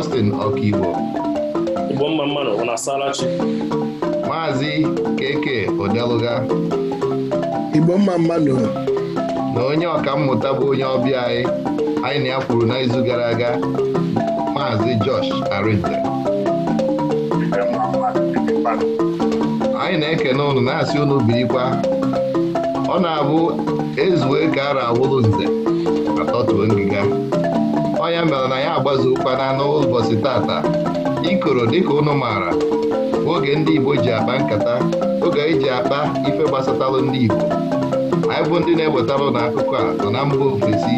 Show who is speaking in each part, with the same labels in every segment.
Speaker 1: Austin Ọkaigbo Maazị Keke Odeluga
Speaker 2: Igbo mma
Speaker 1: na onye ọka mmụta bụ onye ọbịa anyị anyị na ya kwuru n'izu gara aga Maazị Josh Arinze anyị na-ekene ụnụ na-asị unu birikwa ọ na-abụ ezuwe ka ara nze na-agbazu ụkpana ụbọchị tata ikoro dịka ụnụ maara oge ndị Igbo ji akpa nkata oge anyị e ji akpa ife gbasatalụ ndị Igbo anyị bụ ndị na-ewetarụ na akụkọ a nọ na mba ofesi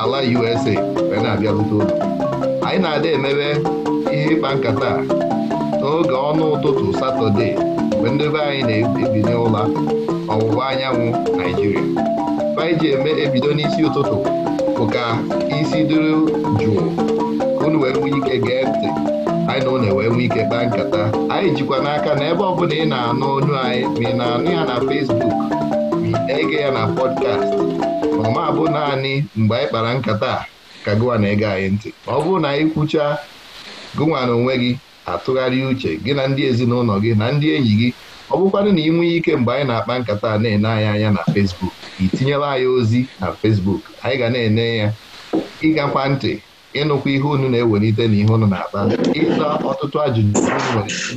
Speaker 1: ala USA wee na-abịarute ụlọ anyị na-adị emebe ihe ịkpa nkata n'oge ọnụ ụtụtụ satọde mgbe ndị anyị na-ebinye ụla ọwụwa anyanwụ Naijiria anyị ji eme ebido n'isi ụtụtụ bụ ka isi dịrị jụụ ka unu wee nwee ike gee ntị anyị na unu wee ike kpaa nkata anyị jikwa n'aka na ebe ọbụla ị na-anụ onu anyị ma ị na-anụ ya na Fesbuk ma ege ya na pọdkast ma ọ bụ naanị mgbe anyị kpara nkata ka gụwa na-ege anyị ntị ọ bụrụ na anyị kwucha gụnwa na onwe gị atụgharị uche gị na ndị ezinụlọ gị na ndị enyi gị ọ bụkwanụ na ị nwee ike mgbe anyị na-akpa nkata na-ene anyị anya na Fesbuk. i tinyela anyị ozi na fesbuk anyị ga na-enye ya kwa ntị ịnụkwa ihe unu na-ewelite na ihe unu na-akpa ịza ọtụtụ ajụjụ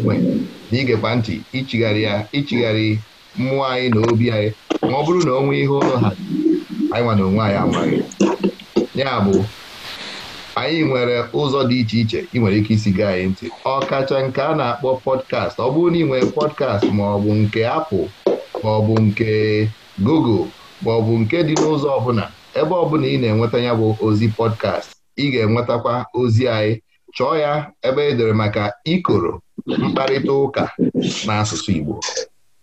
Speaker 1: nwere na igekwa ntị ichigharị ya ichigharị mmụọ anyị na obi anyị ma ọ bụrụ na onwe ihe ụlọ ha anyị nwa na onwe anyị amaghị ya bụ anyị nwere ụzọ dị iche iche ị nwere ike isi gaa anyị ntị ọ kacha nke a na-akpọ pọdkast ọ bụrụ na ị nwere pọdkast ma ọ bụ nke apụl ma ọ bụ nke google ma ọ bụ nke dị n'ụzọ ọbụla ebe ọbụla ị na-enweta ya bụ ozi pọdkast ị ga-enwetakwa ozi anyị chọọ ya ebe e dere maka ikoro mkparịta ụka n'asụsụ Igbo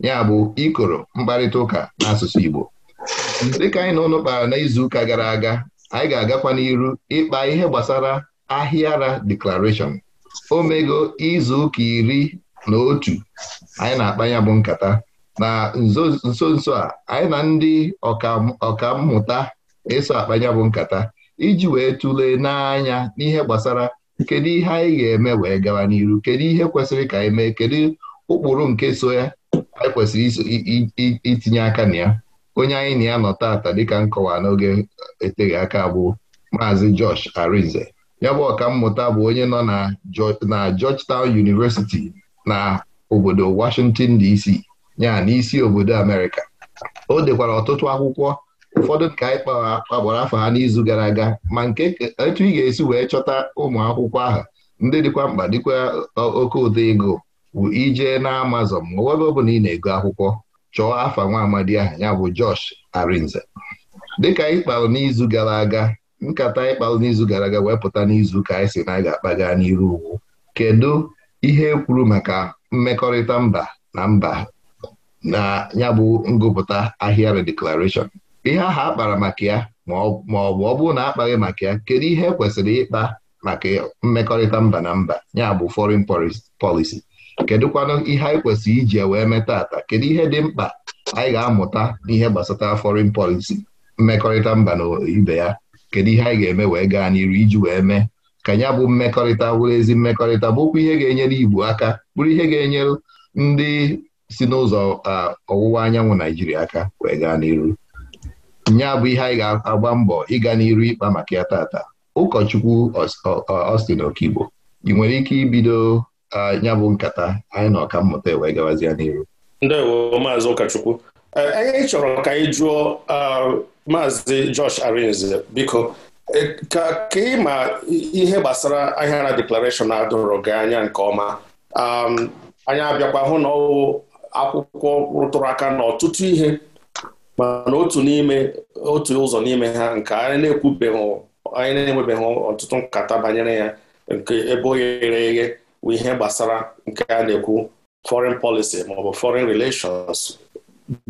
Speaker 1: ya bụ ikoro mkparịta ụka n'asụsụ Igbo dịka anyị na ụnụ kpara n'izuụka gara aga anyị ga-agakwa n'iru ịkpa ihe gbasara ahịara deklarashọn omego izuụka iri na otu anyị na-akpa ya bụ nkata na nso nso a anyị na ndị ọkammụta eso akpanya bụ nkata iji wee tụlee n'anya n'ihe gbasara kedu ihe anyị ga-eme wee gawa n'iru kedu ihe kwesịrị ka anyị mee kedu ụkpụrụ nke so ya anyị kwesịrị itinye aka na ya onye anyị na ya nọ taata dịka nkọwa n'oge eteghị aka bụ maazị Josh Arinze ya bụ ọkammụta bụ onye nọ na Georgetown University na obodo Washington DC ya n'isi obodo Amerịka o dekwara ọtụtụ akwụkwọ ụfọdụ nke anyị kpagbara afọ ha n'izu gara aga ma nke etu ị ga-esi wee chọta ụmụ akwụkwọ ahụ ndị dịkwa mkpa dịkwa oke ụdị ego ije na Amazon ma ebe ọ bụla ị na-ego akwụkwọ chọọ afa nwa amadi ahụ ya bụ Josh Arinze dịka ịkpalụ n'izu gara aga nkata anyị n'izu gara aga wee pụta n'izu ka anyị si na ga-akpaga n'iru ugwu kedu ihe kwuru maka mmekọrịta mba na mba na ya bụ ngụpụta ahịa redeclaration ihe ahụ akpara maka ya ma ọ bụ ọ bụrụ na akpaghị maka ya kedu ihe e kwesịrị ịkpa maka mmekọrịta mba na mba ya bụ foreign policy kedụkwanụ ihe anyị kwesịrị iji wee meta ata kedu ihe dị mkpa anyị ga-amụta n'ihe gbasatara foreign policy mmekọrịta mba na ibe ya kedu ihe anyị ga-eme wee gaa n'iru iji wee mee ka ya bụ mmekọrịta wụrụ ezi mmekọrịta bụkwa ihe ga-enyere Igbo aka bụrụ ihe ga-enyere ndị si n'ụzọ ọwụwa anyanwụ Naijiria aka wee gaa n'iru nya bụ ihe anyị ga-agba mbọ ịga n'iru ịkpa maka ya tata ụkọchukwu Ọstin Okigbo ị nwere ike ibido nya bụ nkata anyị na ọkammụta wee gawazia n'iru
Speaker 3: ndewo maazị ụkọchukwu e, anyị chọrọ ka anyị jụọ maazị Josh Arinze biko e, ka ị ma ihe gbasara Ahịara Declaration na-adọrọ gị anya nke ọma anyị abịakwa hụ na ọwụ akwụkwọ rụtụrụ aka na ọtụtụ ihe mana otu n'ime otu ụzọ n'ime ha nke anyị na-ekwubeghị anyị na-enwebeghị ọtụtụ nkata banyere ya nke ebe oghere ghere eghe bụ ihe gbasara nke a na-ekwu foreign policy maọbụ foreign relations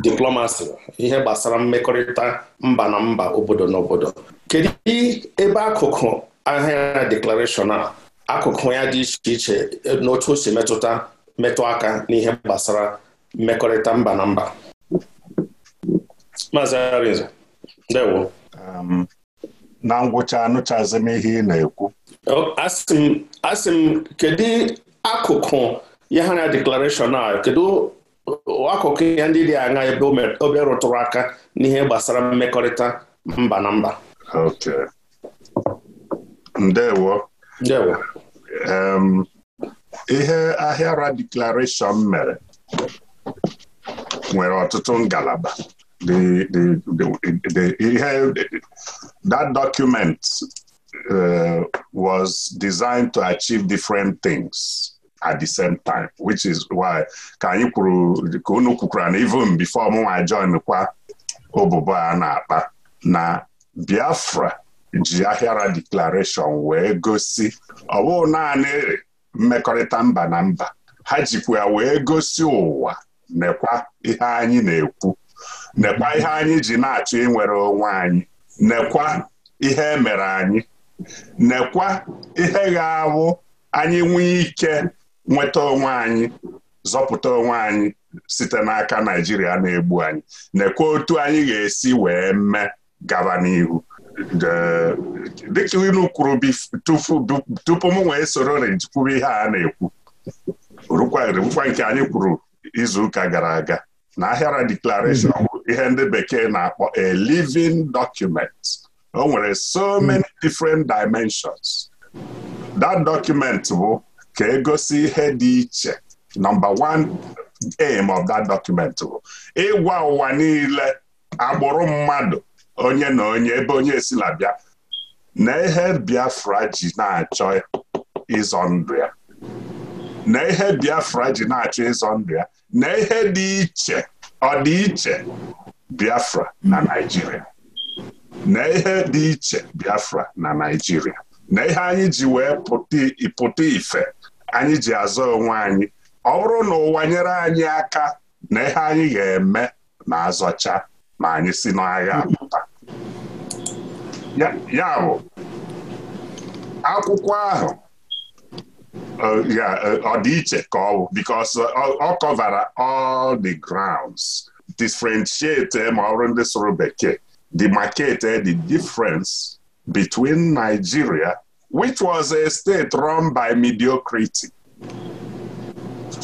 Speaker 3: diplomacy ihe gbasara mmekọrịta mba na mba obodo na obodo kedu ebe akụkụ ahịa declaration a akụkụ ya dị iche iche n'otu o si metụta metụ aka n'ihe gbasara mmekọrịta mba na mba
Speaker 4: Maazị Arinze ndewo um, na ngwụcha anụchazi m ihe ị na-ekwu asị
Speaker 3: m kedu akụkụ ya ha na deklarashọn a kedu akụkụ ya ndị dị aṅa ebe obe rụtụrụ aka n'ihe gbasara mmekọrịta mba na
Speaker 4: mba ndewo um, ihe ahịara deklarashọn mere nwere ọtụtụ ngalaba that document uh, was designed to achieve different things at the same time which is why ka anyị kwuru ka unu kwukwara na even before mụnwa join kwa obobo a na-akpa na Biafra ji ahịara declaration wee gosi ọ bụghị naanị mmekọrịta mba na mba ha jikwa wee gosi ụwa nekwa ihe anyị na-ekwu nekwa ihe anyị ji na-achọ inwere onwe anyị nekwa ihe emere anyị nekwa ihe ga-awụ anyị nwee ike nweta onwe anyị zọpụta onwe anyị site n'aka Naijiria na-egbu anyị nekwa otu anyị ga-esi wee mee gaba n'ihu dịka kwuru tupu m wee soro ihe a na-ekwu anyị kwuru izuụka gara aga na ahịara bụ hmm. ihe ndị bekee na-akpọ a living document o nwere so hmm. many different dimensions that document bụ ka egosi ihe dị iche number one aim of that document bụ ịgwa ụwa niile akpụrụ mmadụ onye na onye ebe onye esi labịa na ihe Biafra ji na-achọ ịzọ ndụ ya na ihe Biafra ji na-achọ ịzọ ndụ ya na ihe dị iche ọdịiche Biafra na naijiria na ihe dị iche Biafra na Naịjirịa na ihe anyị ji wee pụta ife anyị ji azọ onwe anyị ọ bụrụ na ụwa nyere anyị aka na ihe anyị ga-eme na azọcha ma anyị si n'agha apụta ya bụ
Speaker 2: akwụkwọ ahụ
Speaker 4: ya uh, yeah, uh, ka ọ bụ because uh, ọ kọvara all the grounds differentiate eh, ma ọ bụrụ bekee the market eh, the difference between Nigeria which was a state run by mediocrity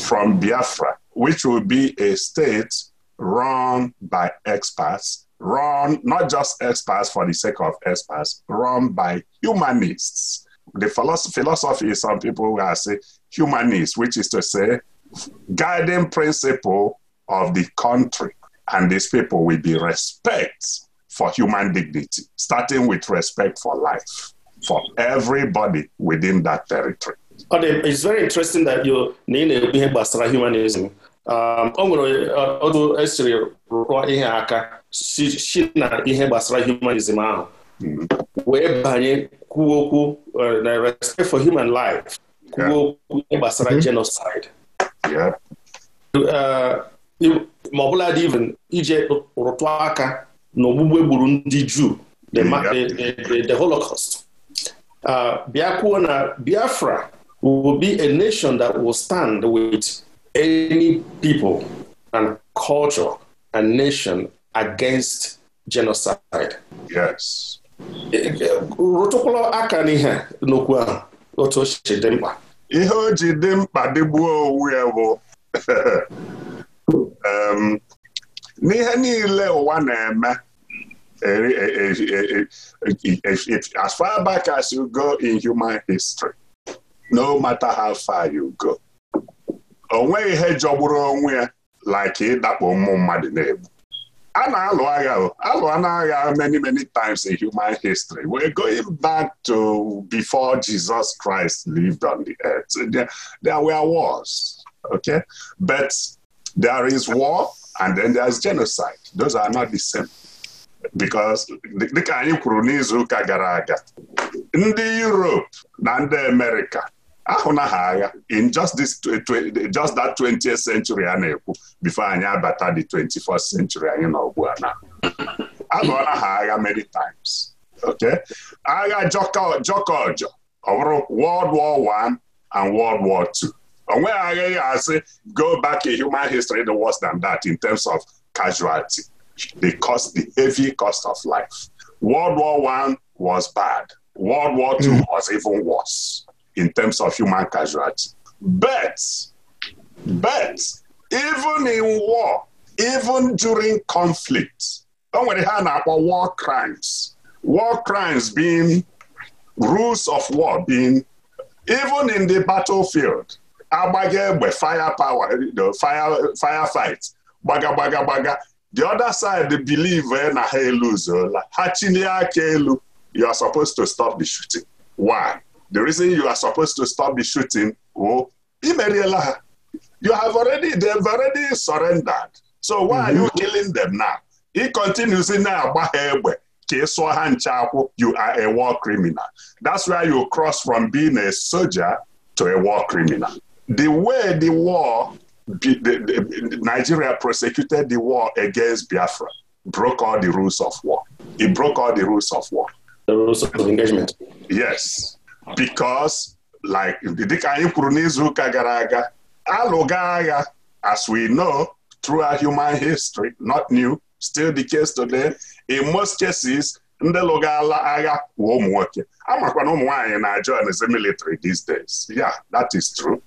Speaker 4: from Biafra which will be a state run by experts run not just experts for the sake of experts run by humanists the philosophy is some people who say humanist, which is to say, guiding principle of the country and these people will be respect for human dignity, starting with respect for life for everybody within that territory.
Speaker 3: it's very interesting that you na ihe gbasara humanism um, o nwere otu esiri rụọ ihe aka si na ihe gbasara humanism ahụ hmm. wee banye kwuo okwu na uh, respect for human life kwuo okwu gbasara mm-hmm. genocide uh, e ma ọ bụla dị even ije rụtụ aka na ogbugbe gburu ndị Juu the Holocaust uh, bịa na Biafra will be a nation that will stand with any people and culture and nation against genocide. Yes. rụtụkwala aka n'ihe n'okwu ahụ otu o si dị mkpa
Speaker 4: ihe o ji dị mkpa dịgbuo owu ya bụ n'ihe niile ụwa na-eme e, e, e, as far back as you go in human history no matter how far you go o nweghị ihe jọgburu onwe ya like ịdakpo ụmụ mmadụ na-egbu a na-alụ agha alụọ na agha many many times in human history we're going back to before Jesus Christ lived on the earth there, there were wars okay but there is war and then there is genocide those are not the same because dịka anyị kwuru n'izu ụka gara aga ndị Europe na ndị America ahụnaghị agha in just this just that 20th century a na-ekwu before anyị abata the 21st century anyị nọ ugbu a na agụọla ha agha many times okay agha jọkọ ọjọ ọ bụrụ World War I and World War II Onwe nweghị ya asị go back in human history the worse than that in terms of casualty the cost the heavy cost of life World War I was bad World War II mm. was even worse in terms of human casualty. But, but even in war, even during conflict, o nwere ha na-akpọ war crimes war crimes being rules of war being even in the battlefield agbaga egbe fire power fire fire fight gbaga the other side believe eh, na ha eluzuola ha chilie aka elu you are supposed to stop the shooting why the reason you are supposed to stop the shooting oh imeriela ha you have already they've already surrendered so why are you mm-hmm. killing them now He continues na-agba ha egbe ka ị sụọ ha nche akwụ you are a war criminal that's where you cross from being a soldier to a war criminal the way the war be the, the, Nigeria prosecuted the war against Biafra broke all the rules of war. It broke all the rules of war. The rules of engagement. Yes. because like dịka anyị kwuru n'izuụka gara aga alụga agha as we know through our human history not new still the case today in most cases ndị lụgala agha bụ ụmụ nwoke amakwana ụmụ nwaanyị na join the military these days yeah that is true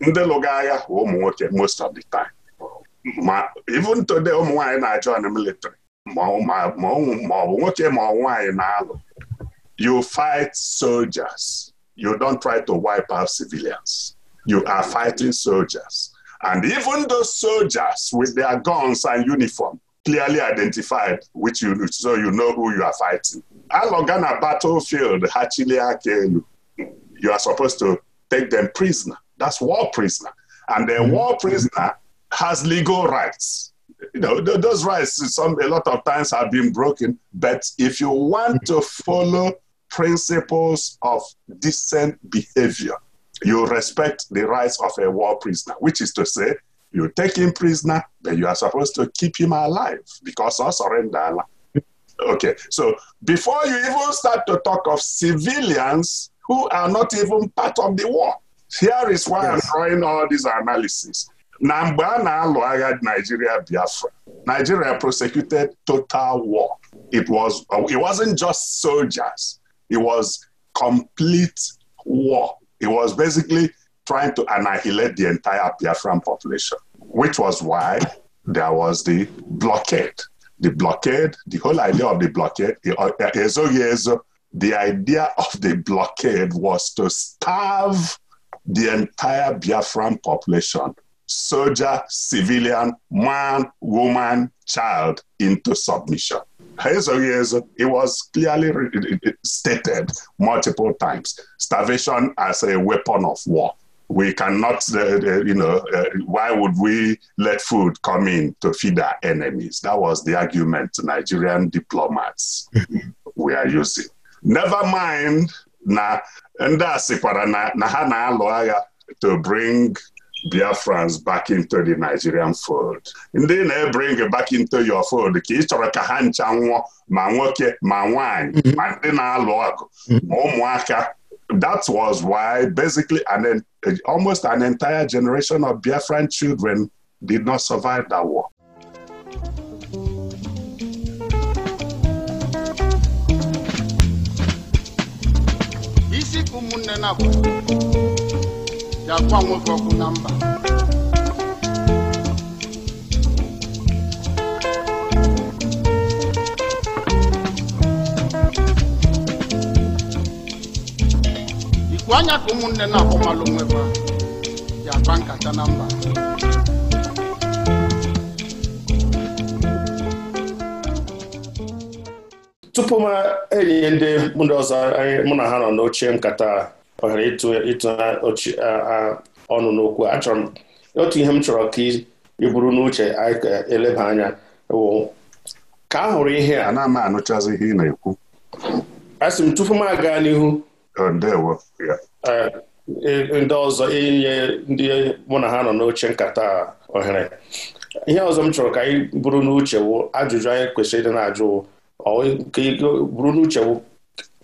Speaker 4: ndị lụga agha bụ ụmụ nwoke most of the time ma even today ụmụ nwaanyị na join military ma ọ bụ nwoke ma ọ nwaanyị na-alụ You fight soldiers. You don't try to wipe out civilians. You are fighting soldiers. And even those soldiers with their guns and uniform, clearly identified, which you so you know who you are fighting. Along on a battlefield, Hachiliakelu, you are supposed to take them prisoner. That's war prisoner, and the mm-hmm. war prisoner has legal rights. You know those rights. Some a lot of times have been broken, but if you want to follow principles of decent behavior. You respect the rights of a war prisoner, which is to say, you take him prisoner, but you are supposed to keep him alive because of surrender. Okay, so before you even start to talk of civilians who are not even part of the war, here is why yes. I'm drawing all these analysis. Na mgbe a na-alụ agha Nigeria Biafra, Nigeria prosecuted total war. It was uh, it wasn't just soldiers. It was complete war. It was basically trying to annihilate the entire Biafran population, which was why there was the blockade. The blockade, the whole idea of the blockade, eh, eh, eh, uh, the idea of the blockade was to starve the entire Biafran population, soldier, civilian, man, woman, child, into submission. ezoghị ezo it was clearly stated multiple times starvation as a weapon of war we cannot uh, uh you know uh, why would we let food come in to feed our enemies that was the argument Nigerian diplomats were using never mind na ndị a na ha na-alụ agha to bring Biafrans back into the Nigerian fold ndị na-ebring back into your fold ka ị chọrọ ka ha ncha nwụọ ma nwoke ma nwanyi mm-hmm. ma ndị na-alụ ọgụ ma mm-hmm. ụmụaka that was why basically an, almost an entire generation of Biafran children did not survive that war.
Speaker 5: isi ka ụmụnne na-abụ ya gwa nwoke ọkụ na mba ikwu anya ka ụmụnne na-akpọmalụ nweba ya kwa nkata na mba
Speaker 3: tupu m enyi ndị ndị anyị mụ na ha nọ n'oche nkata ọ ghara ịtụ ọnụ n'okwu achọrọ m otu ihe m chọrọ ka ị bụrụ n'uche anyị ka eleba anya ka a hụrụ ihe a na-ama anụchazi ihe ị na-ekwu asị m tupu m aga n'ihu e, e, ndị ọzọ inye e, ndị mụ na ha nọ n'oche nkata ohere ihe ọzọ m chọrọ ka anyị bụrụ n'uche wụ ajụjụ anyị kwesịrị ịdị na-ajụ ka bụrụ n'uche wụ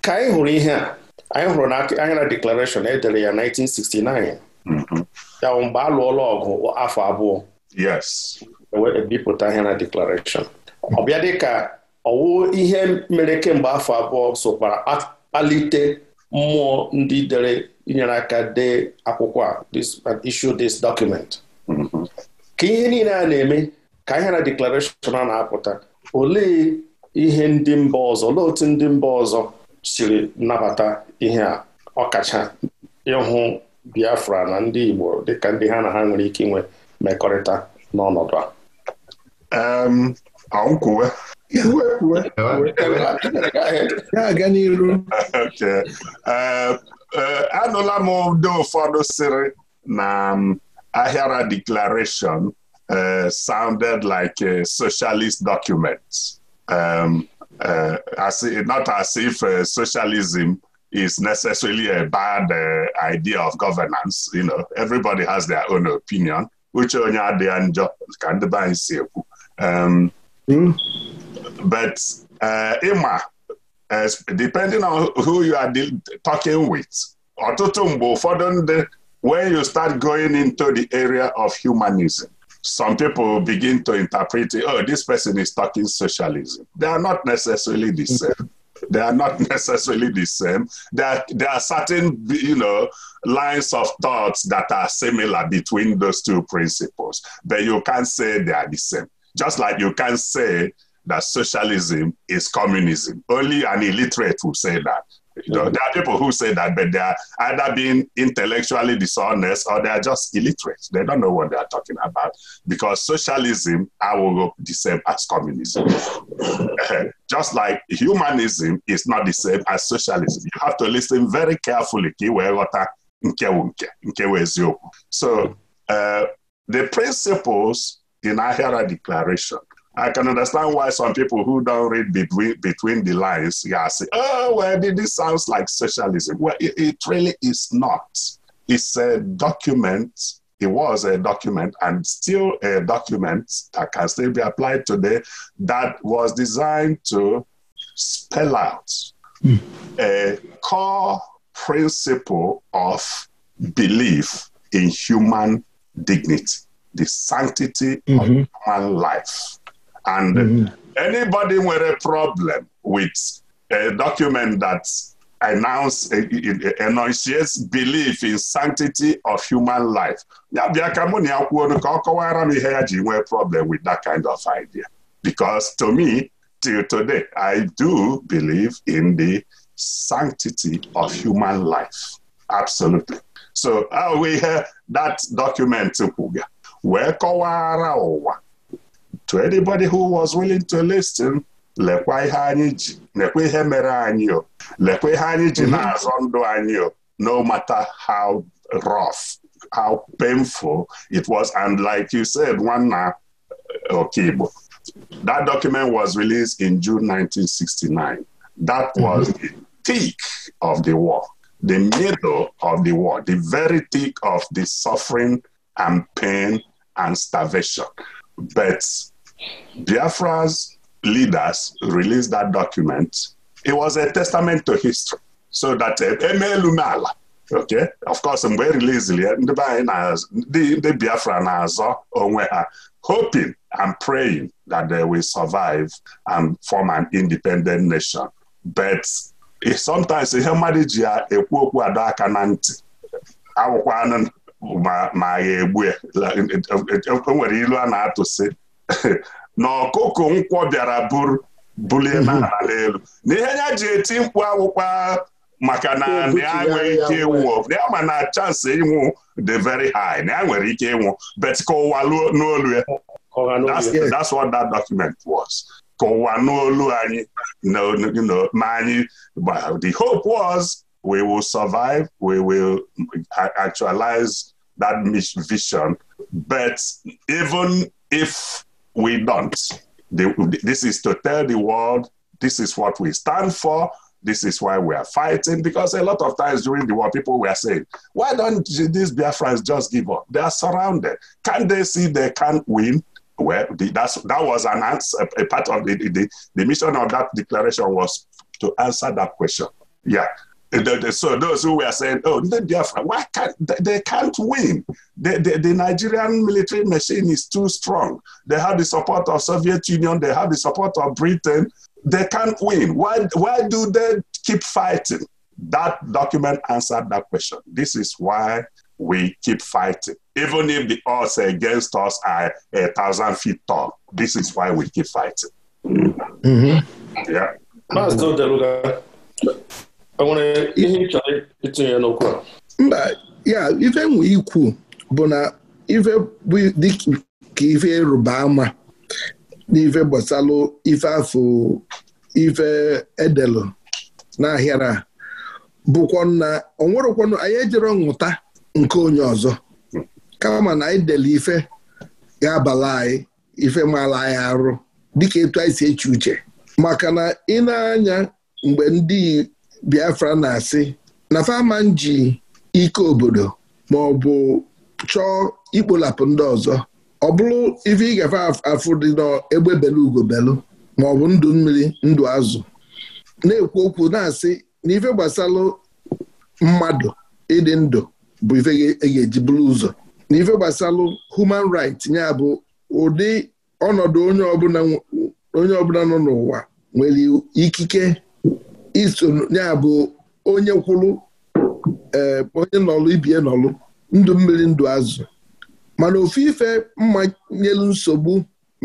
Speaker 3: ka anyị hụrụ ihe a anyị hụrụ na anya na deklarashọn edere ya 1969 mm-hmm. ya bụ mgbe a lụọla ọgụ afọ abụọ ebipụta e ihe na deklarashọn ọ bịa dịka ọwụ ihe mere kemgbe afọ abụọ sokwara kpalite mmụọ ndị dere inyere aka dee akwụkwọ a issue this document mm-hmm. ka ihe niile a na-eme ka ihe na deklarashọn a na-apụta olee ihe ndị mba ọzọ olee otu ndị mba ọzọ siri nabata ihe a ọkacha ịhụ Biafra na ndị Igbo dịka ndị ha na ha nwere ike inwe mmekọrịta n'ọnọdụ
Speaker 4: a kwuwe ga eh, eh, anụla m ndị ụfọdụ sịrị na um, ahịara declaration eh, sounded like a socialist document. Um, as uh, not as if uh, socialism is necessarily a bad uh, idea of governance. You know, everybody has their own opinion. uche onye adịghị njọ ka ndị be anyị si um, hmm? but ịma depending on who you are talking with ọtụtụ mgbe ụfọdụ ndị when you start going into the area of humanism some people begin to interpret it, oh, this person is talking socialism. They are not necessarily the mm-hmm. same. They are not necessarily the same. There are, there are certain, you know, lines of thoughts that are similar between those two principles, but you can't say they are the same. Just like you can say that socialism is communism. Only an illiterate will say that. You know, there are people who say that, but they are either being intellectually dishonest or they are just illiterate. They don't know what they are talking about because socialism, I will go the same as communism. just like humanism is not the same as socialism. You have to listen very carefully. So uh, the principles in Ahira Declaration I can understand why some people who don't read between between the lines, yeah, say, "Oh, well, this sounds like socialism." Well, it, it really is not. It's a document. It was a document, and still a document that can still be applied today. That was designed to spell out mm. a core principle of belief in human dignity, the sanctity mm-hmm. of human life. And mm-hmm. anybody nwere problem with a document that announce enunciates belief in sanctity of human life ya bịa ka mụ na ya kwuo ka ọ kọwara m ihe ya ji nwee problem with that kind of idea because to me till today I do believe in the sanctity of human life absolutely so ahụ ihe that document kwuga wee kọwara ụwa to anybody who was willing to listen lekwa ihe anyị ji lekwa ihe mere anyị o lekwa ihe anyị ji mhm. na-azọ ndụ anyị o no matter how rough how painful it was and like you said nwanna eh, Okigbo that document was released in June 1969 that mhm. was the thick of the war the middle of the war the very thick of the suffering and pain and starvation but Biafra's leaders released that document. It was a testament to history so that emeelu eh, eh, n'ala okay of course mgbe e ya ndị be ndị Biafra na-azọ onwe ha hoping and praying that they will survive and form an independent nation but eh, sometimes ihe mmadụ ji ya ekwu okwu adọ aka na ntị awụkwanụ ma ma egbu ya enwere e, e, e, ilu a na-atụsị na ọkụkụ nkwọ bịara bulie mhm. n'ala elu na ihe ya ji eti mkpu akwụkwọ maka na ya nwere ike ịnwụ ya ma na chansị ịnwụ dị very high na ya nwere ike ịnwụ bet ka ụwa n'olu ya that's what that document was ka ụwa n'olu anyị ma anyị the hope was we will survive we will actualize that vision but even if we don't. this is to tell the world this is what we stand for. This is why we are fighting. Because a lot of times during the war, people were saying, why don't these Biafrans just give up? They are surrounded. Can they see they can't win? Well, the, that's, that was an answer. A part of the, the, the mission of that declaration was to answer that question. Yeah. Eh, the, the, so those who were saying, oh, the Biafra, why can't they, they can't win? The, the, the, Nigerian military machine is too strong. They have the support of Soviet Union. They have the support of Britain. They can't win. Why, why do they keep fighting? That document answered that question. This is why we keep fighting. Even if the odds against us are a thousand feet tall, this is why we keep fighting. Mm-hmm. Yeah. Mm-hmm.
Speaker 2: mba ya ife nwe ikwu bụ na ife bụ dịka ife ịrụba ama n'ife gbasalụ ife afọ ife edelụ na bụkwa na onwerụkwanụ anyị ejere nghụta nke onye ọzọ kama na anyị dele ife ga-abala anyị ife maala anyị arụ dịka etu anyị si eche uche maka na ị na-anya mgbe ndị Biafra na-asị na faman ji ike obodo ma ọ bụ chọọ ikpolapụ ndị ọzọ ọ bụrụ ife ị gafe afụ dị n'egbe belu ugobelu ma ọ bụ ndụ mmiri ndụ azụ na-ekwu okwu na-asị na ife gbasalụ mmadụ ịdị ndụ bụ ife e e ga-eji bụrụ ụzọ na ife gbasalụ human right ya bụ ụdị ọnọdụ onye ọbụla nọ n'ụwa nwere ikike iso ya bụ onye kwụrụ eh, onye nọlụ ibie nọlụ ndụ mmiri ndụ azụ mana ofu ife mmanyelu nsogbu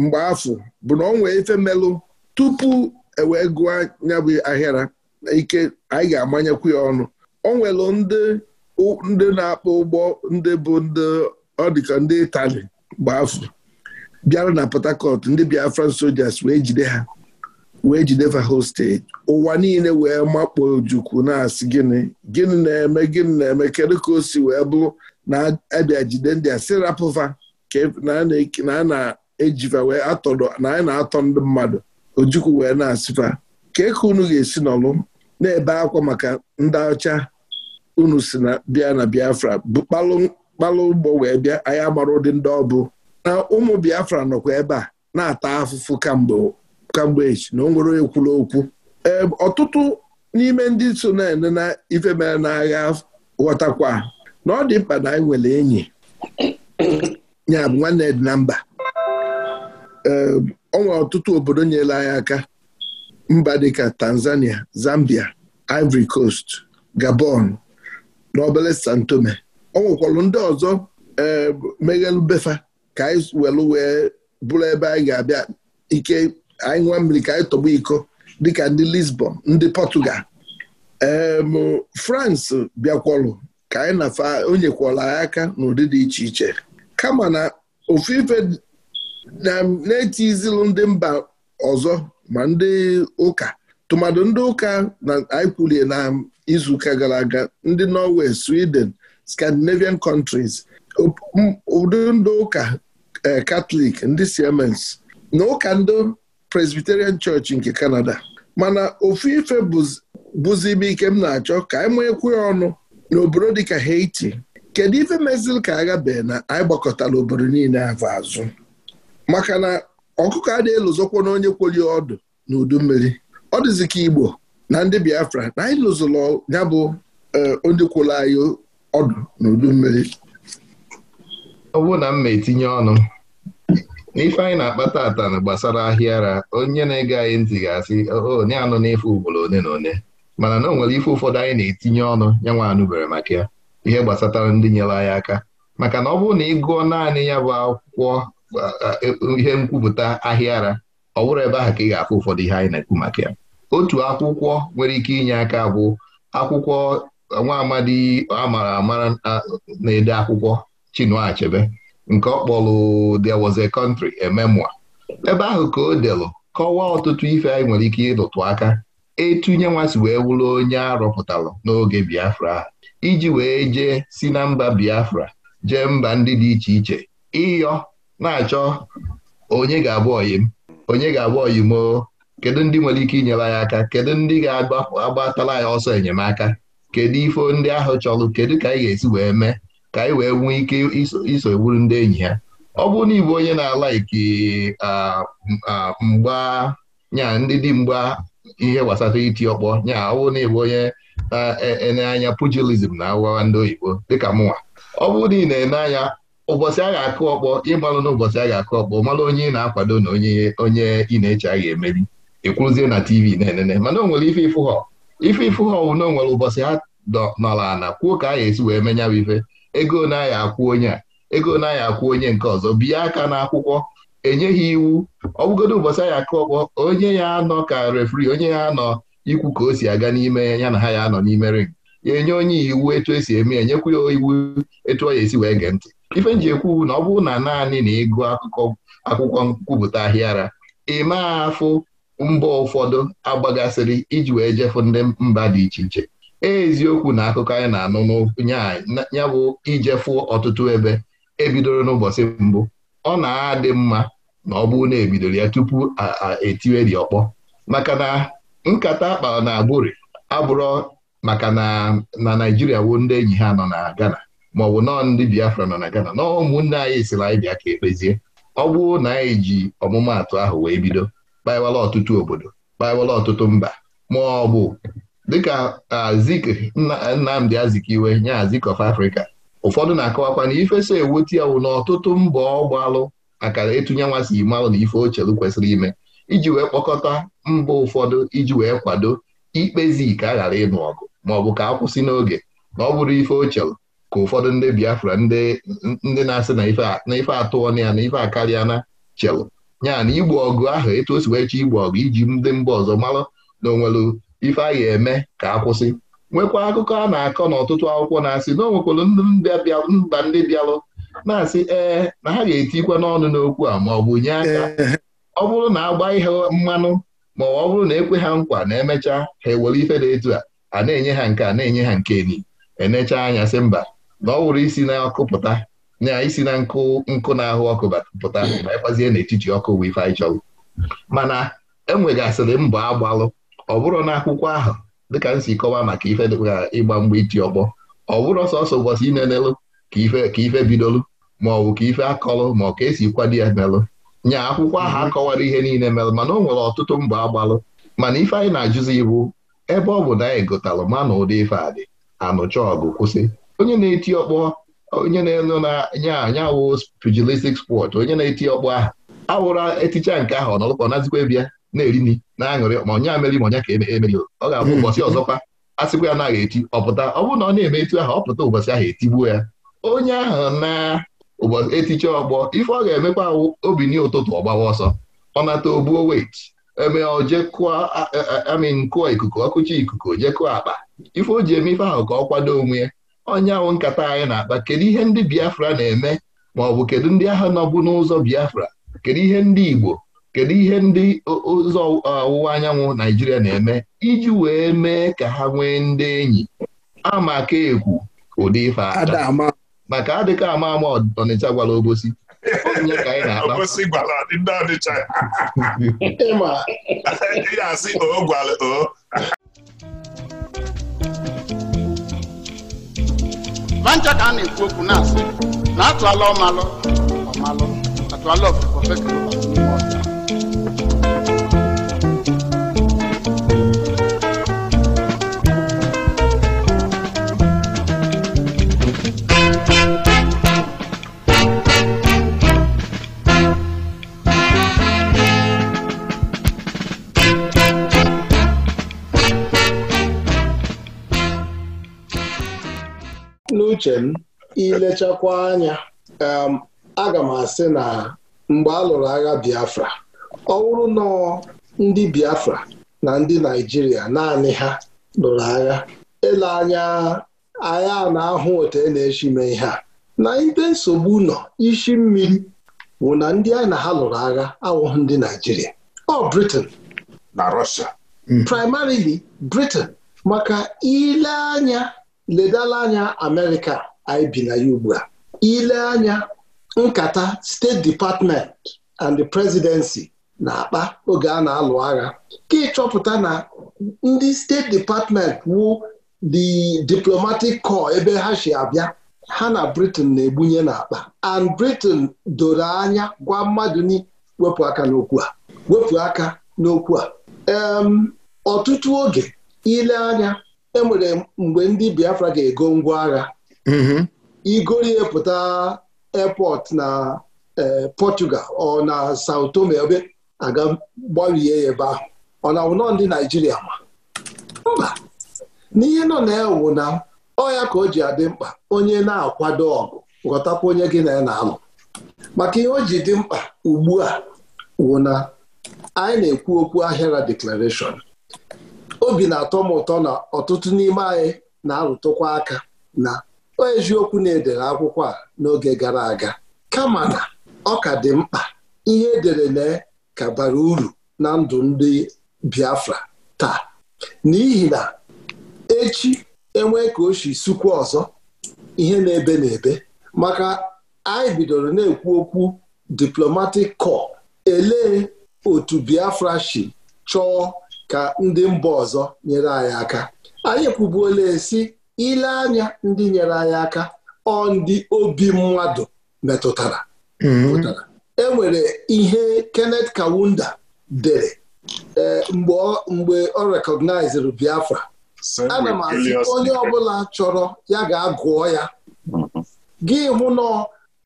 Speaker 2: mgbe afọ bụ na ọ nwee ife melụ tupu ewee gụọ anya bụ na ike anyị ga-amanyekwu ya ọnụ ọ nwere ndị na-akpọ ụgbọ ndị bụ ndị ọ dịka ndị Itali mgbe afọ bịara na Port Harcourt ndị Biafran soldiers wee jide ha wee jide Fahol steeti ụwa niile wee makpo Ojukwu na-asị gịnị gịnị na-eme gịnị na-eme kedu ka o si wee bụrụ na-abịa jide ndị a sirapụfa e, na a na-ejiva wee atọdọ na a na-atọ ndị mmadụ Ojukwu wee na-asịfa ka eke unu ga-esi n'ọlụ na-ebe akwa maka ndị ọcha unu si na bịa na Biafra bụ kpalụ ụgbọ wee bịa anyị amara ụdị ndị ọbụ na ụmụ Biafra nọkwa ebe a na-ata afụfụ kamgbe kamgbechi na onwere onye kwuru okwu ọtụtụ n'ime ndị so na-ene na ife mere n'agha ghọtakwa na ọ dị mkpa na anyị nwere enyi ya bụ nwanne dị na mba ọtụtụ obodo nyere anyị aka mba dịka Tanzania Zambia Ivory Coast Gabon na obere San Tome ọ ndị ọzọ meghelụ befa ka anyị welu bụrụ ebe anyị ga-abịa ike anyị nwa mmiri ka anyị tọgbọ iko dịka ndị Lisbon ndị Portugal em France bịakwọlụ ka anyị nafa onyekwala anyị aka n'ụdị dị iche iche kama na ofu ife na-eti izilu ndị mba ọzọ ma ndị ụka tụmadụ ndị ụka na anyị kwulie na izuụka gara aga ndị Norway Sweden Scandinavian countries ụdị ndị ụka katọlik eh, ndị Siemens na ụka ndị Presbyterian Church nke Canada mana ofu ife bụzi ibe ike m na-achọ ka anyị manyekwu ya ọnụ n'obodo dịka Haiti kedu ife mezili ka agha na anyị gbakọtara obodo niile afọ azụ maka na ọkụkọ a na elozokwa na onye kwoli ọdụ na udu mmiri ọ dịzi ka Igbo na ndị Biafra na anyị lụzụrụ ya bụ eh, ndị kwụrụ anyị ọdụ na udu mmiri
Speaker 1: ọ na m ma etinye ọnụ n'ife anyị na-akpata ata gbasara ahịa ara onye na-ege anyị ntị ga-asị onye anụ n'ife ugboro one na one mana na o nwere ife ụfọdụ anyị na-etinye ọnụ ya nwa anụbere maka ya ihe gbasatara ndị nyere anyị aka maka na ọ bụrụ na ị gụọ naanị ya bụ akwụkwọ e, ihe nkwupụta ahịa ara ọ bụrụ ebe ahụ ka ị ga-afụ ụfọdụ ihe anyị na-ekwu maka ya otu akwụkwọ nwere ike inye aka bụ akwụkwọ nwa amadi amara amara na-ede akwụkwọ Chinua Achebe nke ọ kpọrọ There Was a Country a Memoir ebe ahụ ka o delụ kọwaa ọtụtụ ife anyị nwere ike ịlụtụ aka etu nye wee wụrụ onye arọpụtalụ n'oge Biafra iji wee jee si na mba Biafra jee mba ndị dị iche iche ịyọ na-achọ onye ga-abụ oyim onye ga-abụ oyim o kedu ndị nwere ike inyere anyị aka kedu ndị ga agbatala anyị ọsọ enyemaka kedu ife ndị ahụ chọrọ kedu ka anyị ga-esi wee mee ka anyị wee nwee ike iso bụrụ ndị enyi ya ọ bụrụ na onye na-alaiki mgba nya ndị dị mgba ihe gbasara iti ọkpọ nya ọ bụrụ na onye e, e, na anya pugilism na agwawa ndị oyibo dịka mụnwa ọ bụrụ na ị na-ene anya ụbọchị a ga-akụ ọkpọ ịmalụ na ụbọchị a ga-akụ ọkpọ malụ onye ị na-akwado na onye ị na-eche a ga-emeri ekwuruzie na TV na-enene mana o nwere ife ịfụ ha ife ịfụ ha na onwere nwere ụbọchị ha nọrọ ala kwuo ka a ga-esi wee menya ife ego naghị akwụ onye a ego naghị akwụ onye nke ọzọ bie aka n'akwụkwọ enyeghị iwu ọbụgodo ụbọchị anyị aka ọkpọ onye ya anọ ka refri onye ya anọ ikwu ka o si aga n'ime ya na ha ya anọ n'ime ring ya enye onye iwu etu esi eme ya nyekwu ya iwu etu ọ ya esi wee gee ntị ife nji ekwu na ọ bụrụ na naanị na ịgụ akụkọ akwụkwọ nkwupụta ahịara ịma afụ mba ụfọdụ agbagasịrị iji wee jefu ndị mba dị iche iche eziokwu na akụkọ anyị na-anụ ya bụ ijefu ọtụtụ ebe ebidoro n'ụbọchị mbụ ọ na-adị mma na ọ bụrụ na ebidoro ya tupu etiwe dị ọkpọ maka na nkata akpara na agbụrị abụrọ maka na na naijiria woo ndị enyi ha nọ na Ghana ma ọ bụ nọọ ndị Biafra nọ na Ghana na ụmụnne anyị siri anyị bịa ka ekpezie ọ bụrụ na anyị ji ọmụmaatụ ahụ wee bido kpawala ọtụtụ obodo kpawala ọtụtụ mba ma ọ bụ dịka Azik Nnamdi Azikiwe nye Azik of Africa ụfọdụ na-akọwakwa na ife so ewuti ya wụ na ọtụtụ mbọ ọgbalụ akara ịtụnye nwa si malụ na ife ochelu kwesịrị ime iji wee kpọkọta mba ụfọdụ iji wee kwado ikpezi ka a ghara ịnụ ọgụ maọbụ ka akwụsị n'oge na ọ bụrụ ife ochelu ka ụfọdụ ndị Biafra ndị na-asị na ife atụọ na ya na ife akarịa na chelu nya na igbo ọgụ ahụ etu o si wee chọọ igbo ọgụ iji ndị mba ọzọ malụ na onwelu ife a ga-eme ka akwụsị nwekwa akụkọ a na-akọ n'ọtụtụ akwụkwọ na-asị na onwekwara mba ndị bịalụ na-asị ee na ha ga-etikwa n'ọnụ n'okwu a ma ọ bụ nye aka ọ bụrụ na agba ihe mmanụ ma ọ bụrụ na ekwe ha nkwa na emecha ha ewere ife dị etu a a na-enye ha nke a na-enye ha nke ni enechaa anya sị mba na ọ wụrụ isi na-akụ na isi na nkụ nkụ na-ahụ ọkụ pụta ma ịkwazie n'etiti ọkụ wee ife anyị chọrọ mana enwegasịrị mbọ agbalụ ọ bụrụ na akwụkwọ ahụ dịka m si maka ife dịka ịgba mgba iti ọkpọ ọ bụrụ sọsọ ụbọchị inenelụ ka ife ka ife bidolụ ma ọ bụ ka ife akọlụ ma ọ ka esi kwado ya melụ nya akwụkwọ ahụ mhm. akọwara ihe niile melụ mana o nwere ọtụtụ mbọ agbalụ mana ife anyị na-ajụzi ibu ebe ọ bụ na anyị gotalụ ma na ụdị ife adị anụcha ọgụ kwụsị onye na-eti ọkpọ onye na-elu na nya wụ pugilistic sport onye na-eti ọkpọ ahụ awụra eticha nke ahụ ọ nọlụkọ nazikwa bịa na-eri nri na-aṅụrị ma onye ameri ma onye ka emeri ọ ga-abụ hmm. ụbọchị ọzọkwa a sịkwa ya naghị eti ọpụta ọ bụrụ na ọ na-eme etu ahụ ọpụta ụbọchị ahụ etigbuo ya onye ahụ na ụbọchị etiche ọgbọ ife ọ ga-emekwa obi n ụtụtụ ọgbawa ọsọ ọ nata obuo wet eme ojekụọ amin kụọ ikuku ọkụchi ikuku ojekụọ akpa ife o ji eme ife ahụ ka ọ kwado onwe ya onye ahụ nkata anyị na-akpa kedu ihe ndị Biafra na-eme ma ọ bụ kedu ndị ahụ nọbụ n'ụzọ Biafra kedu ihe ndị Igbo kedu ihe ndị ụzọ ọwụwa anyanwụ Naijiria na-eme iji wee mee ka ha nwee ndị enyi amaka ekwu ụdị ife ata maka adịka ama ama Ọnịcha gwara Obosi
Speaker 4: onye ka anyị na-akpa Obosi gwara ndị Ọnịcha ya asị o gwara o
Speaker 5: mancha ka a na-ekwu okwu na-asị na atụala ọmalụ ọmalụ atụala ọfụfọ fekere
Speaker 6: uche m ilechakwa anya um, aga m asị na mgbe a lụrụ agha Biafra ọ bụrụ ndị Biafra na ndị Naịjirịa naanị ha lụrụ agha ele anya agha a na-ahụ otu e na-eshi mee ihe a na ibe nsogbu nọ ishi mmiri bụ na ndị a na ha lụrụ agha awụghị ndị Naịjirịa ọ Britain na primarily Britain maka ile anya ledala anya Amerịka anyị bi na ya ugbu a ile anya nkata steeti department and the presidency na-akpa oge a na-alụ agha ka ịchọpụta na ndị steeti department wu the diplomatic corps ebe ha si abịa ha na Britain na-egbunye n'akpa and Britain doro anya gwa mmadụ ni wepụ aka n'okwu a wepụ aka n'okwu a ọtụtụ oge ile anya e nwere mgbe ndị Biafra ga-ego ngwa agha mhm. igorie pụta airport na eh, Portugal ọ na Sao Tome ebe aga gbarie ya ebe ahụ ọ na wụnọ ndị Naijiria ma mba n'ihe nọ na-ewu na ọya ka o ji adị mkpa onye na-akwado ọgụ ghọtakwa onye gị na ya na-alụ maka ihe o ji dị mkpa ugbu a wụ na anyị na-ekwu okwu ahịara deklarashọn obi na-atọ m ụtọ na ọtụtụ n'ime anyị na-arụtụkwa aka na eziokwu na-edere akwụkwọ a n'oge gara aga kama na ọ ka dị mkpa ihe edere na ka bara uru na ndụ ndị Biafra taa n'ihi na echi enwee ka o si sukwa ọzọ ihe na-ebe na-ebe maka anyị bidoro na-ekwu okwu diplomatic corps elee otu Biafra si chọọ ka ndị mba ọzọ nyere anyị aka anyị kwubuola esi ile anya ndị nyere anyị aka ọ ndị obi mmadụ metụtara mm-hmm. e nwere ihe Kenneth Kawunda dere e, mgbe ọ rekọgnaiziri Biafra ana m asị onye ọbụla chọrọ ya ga-agụọ ya mm-hmm. gị hụ na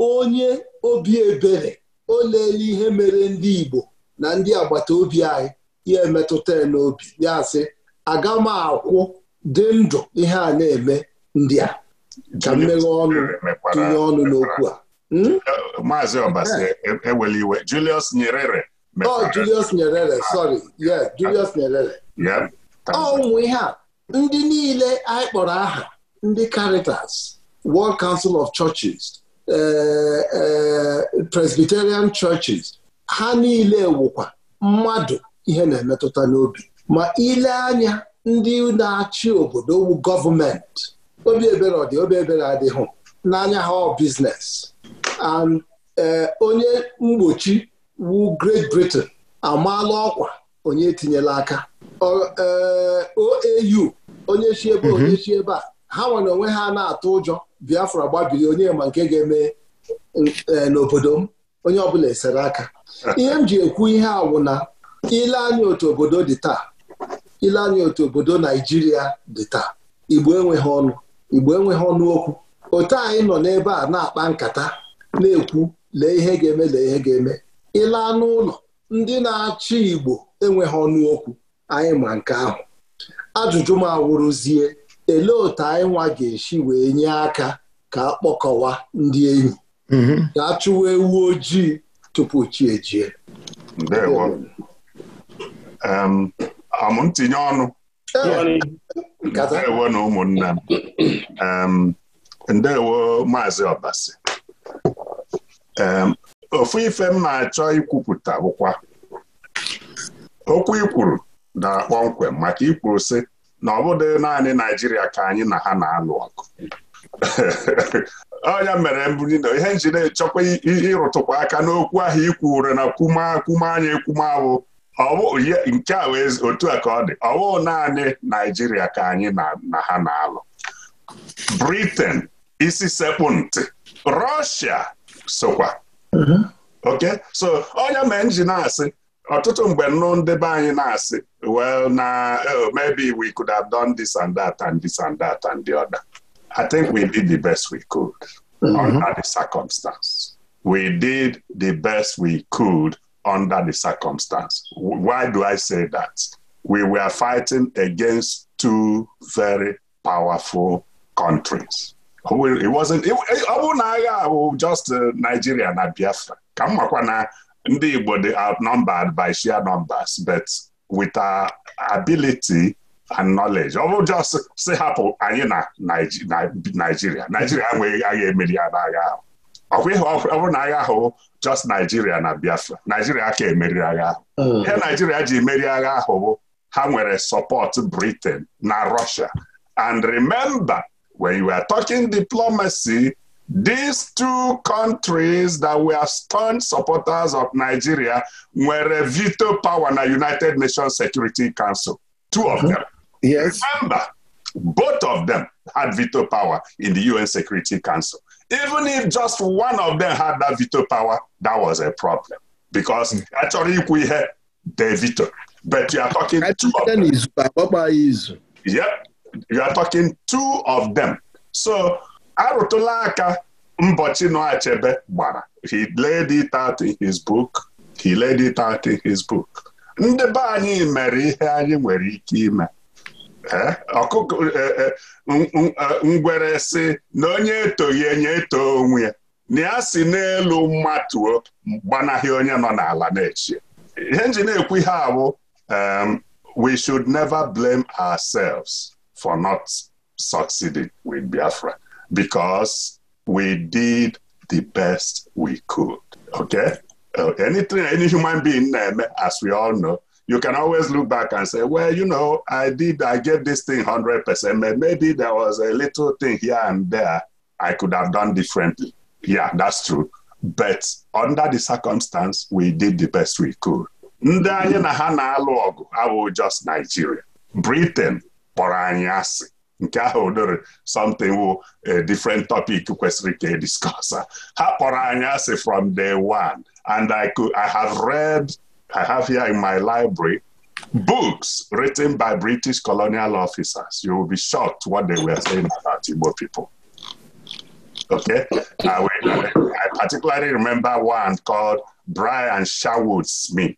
Speaker 6: onye obi ebere o leele ihe mere ndị Igbo na ndị agbata obi anyị ya emetụta n'obi ya sị aga m akwụ dị ndụ ihe a na-eme ndị a
Speaker 4: ka mmeghe ọnụ tinye ọnụ n'okwu a hmm? eh, Maazị Obasi ewele eh. e, iwe Julius Nyerere
Speaker 6: oh Julius Nyerere sorry yes Julius Nyerere oh, ụmụ ihe a ndị niile anyị kpọrọ aha ndị Caritas World Council of Churches eh, Presbyterian Churches ha niile wụkwa mmadụ ihe na-emetụta n'obi ma ile anya ndị na-achị obodo wu gọọmenti obi ebere ọdị obi ebere adịghị n'anya ha ọ biznes eh, onye mgbochi wu Great Britain amaala ọkwa onye tinyela aka eh, OAU onye chi ebe mhm. onye chi ebe a ha nwere onwe ha na-atụ ụjọ Biafra gbabiri onye ma nke ga-eme eh, n'obodo m onye ọbụla esere aka ah. ihe m ji ekwu ihe a ile anya otu obodo dị taa ile anya otu obodo naijiria dị taa igbo enweghị ọnụ igbo enweghị ọnụ okwu otu anyị nọ n'ebe a na-akpa nkata na-ekwu lee ihe ga-eme lee ihe ga-eme ile anụ ụlọ ndị na-achị igbo enweghị ọnụ okwu anyị ma nke ahụ ajụjụ m awụrụzie elee otu anyị nwa ga-esi wee nye aka ka akpọkọwa ndị enyi ga-achụwa mhm. ewu ojii tupu chi ejie
Speaker 4: amụ ọnụ ndewo na ụmụnna m ndewo maazị ọbasi ofu ife m na-achọ ikwupụta bụkwa okwu ikwuru dara kpọmkwem maka ikwuru sị na ọ bụghị naanị naijiria ka anyị na ha na-alụ ọgụ Onye mere mbuli na ihe njide chọkwa ịrụtụkwa aka n'okwu ahụ ikwu ure na kwume anya ekwume ọwụ nke a wee otu a ka ọ dị ọwụ naanị Naijiria ka anyị na ha na-alụ Britain isi sekpụ ntị Russia sokwa mhm. oke so onye ma nji asị ọtụtụ mgbe nnụ ndebe anyị na-asị well na oh, maybe we could have done this and that and this and that and the other I think we did the best we could mhm. under the circumstance we did the best we could under the circumstance. Why do I say that? We were fighting against two very powerful countries. It wasn't, ọ bụrụ na agha bụ just uh, Nigeria na Biafra ka na ndị Igbo dị outnumbered by share numbers but with our ability and knowledge ọ bụ just say hapụ anyị na Nigeria Nigeria enweghị agha emeri ya agha ahụ ọkwa ịhụ ọ bụrụ na agha ahụ just Nigeria na Biafra Nigeria aka emeriri agha ahụ mm. ihe Nigeria ji emeri agha ahụ bụ ha nwere support Britain na Russia and remember when you are talking diplomacy these two countries that were staunch supporters of Nigeria nwere veto power na United Nations Security Council two of mm-hmm. them yes remember both of them had veto power in the UN Security Council even if just one of them had that veto power that was a problem because a chọrọ ikwu ihe de veto but you are talking two of them yep you are talking two of them so arụtụla aka mbọchị nọ achebe gbara he laid it out in his book he laid it out in his book ndị be anyị mere ihe anyị nwere ike ime eh, ọkụkọ eh, eh, ngwere sị na onye ya enye eto onwe ya na ya si n'elu mmatuo gbanaghị onye nọ n'ala na-eche ihe nji na-ekwu ihe abụ um, we should never blame ourselves for not succeeding with Biafra because we did the best we could okay uh, anything any human being na-eme as we all know you can always look back and say, well, you know, I did, I get this thing 100%. Maybe there was a little thing here and there I could have done differently. Yeah, that's true. But under the circumstance, we did the best we could. Ndị anyị na ha na-alụ ọgụ abụghị just Nigeria. Britain kpọrọ anyị asị. Nke ahụ dịrị something wụ a different topic kwesịrị ka e discuss. Ha kpọrọ anyị asị from day one. And I could, I have read I have here in my library books written by British colonial officers. You will be shocked what they were saying about Igbo people. Okay? I, will, I, particularly remember one called Brian Sherwood Smith.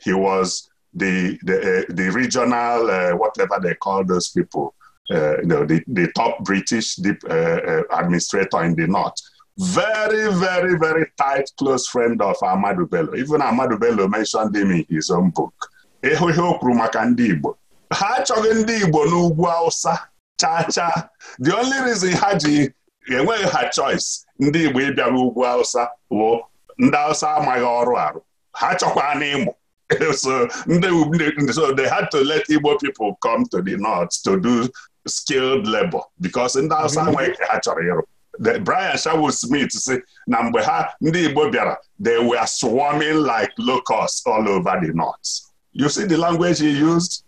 Speaker 4: He was the, the, uh, the regional, uh, whatever they call those people, uh, you know, the, the top British deep, uh, uh, administrator in the North. very, very, very tight, close friend of Amadu Bello. Even Amadu Bello mentioned him in his own book. Ịhụ ihe o kwuru maka ndị Igbo ha achọghị ndị Igbo n'ugwu Hausa chacha the only reason ha ji enweghị ha choice ndị Igbo ịbịara ugwu Hausa bụ ndị Hausa amaghị ọrụ arụ ha chọkwa n'ịmụ so they had to let Igbo people come to the north to do skilled labor ndị Hausa nwe ha chọrọ ịrụ Brian Sherwood Smith si na mgbe ha ndị Igbo bịara they were swarming like locusts all over the north. You see the language he used?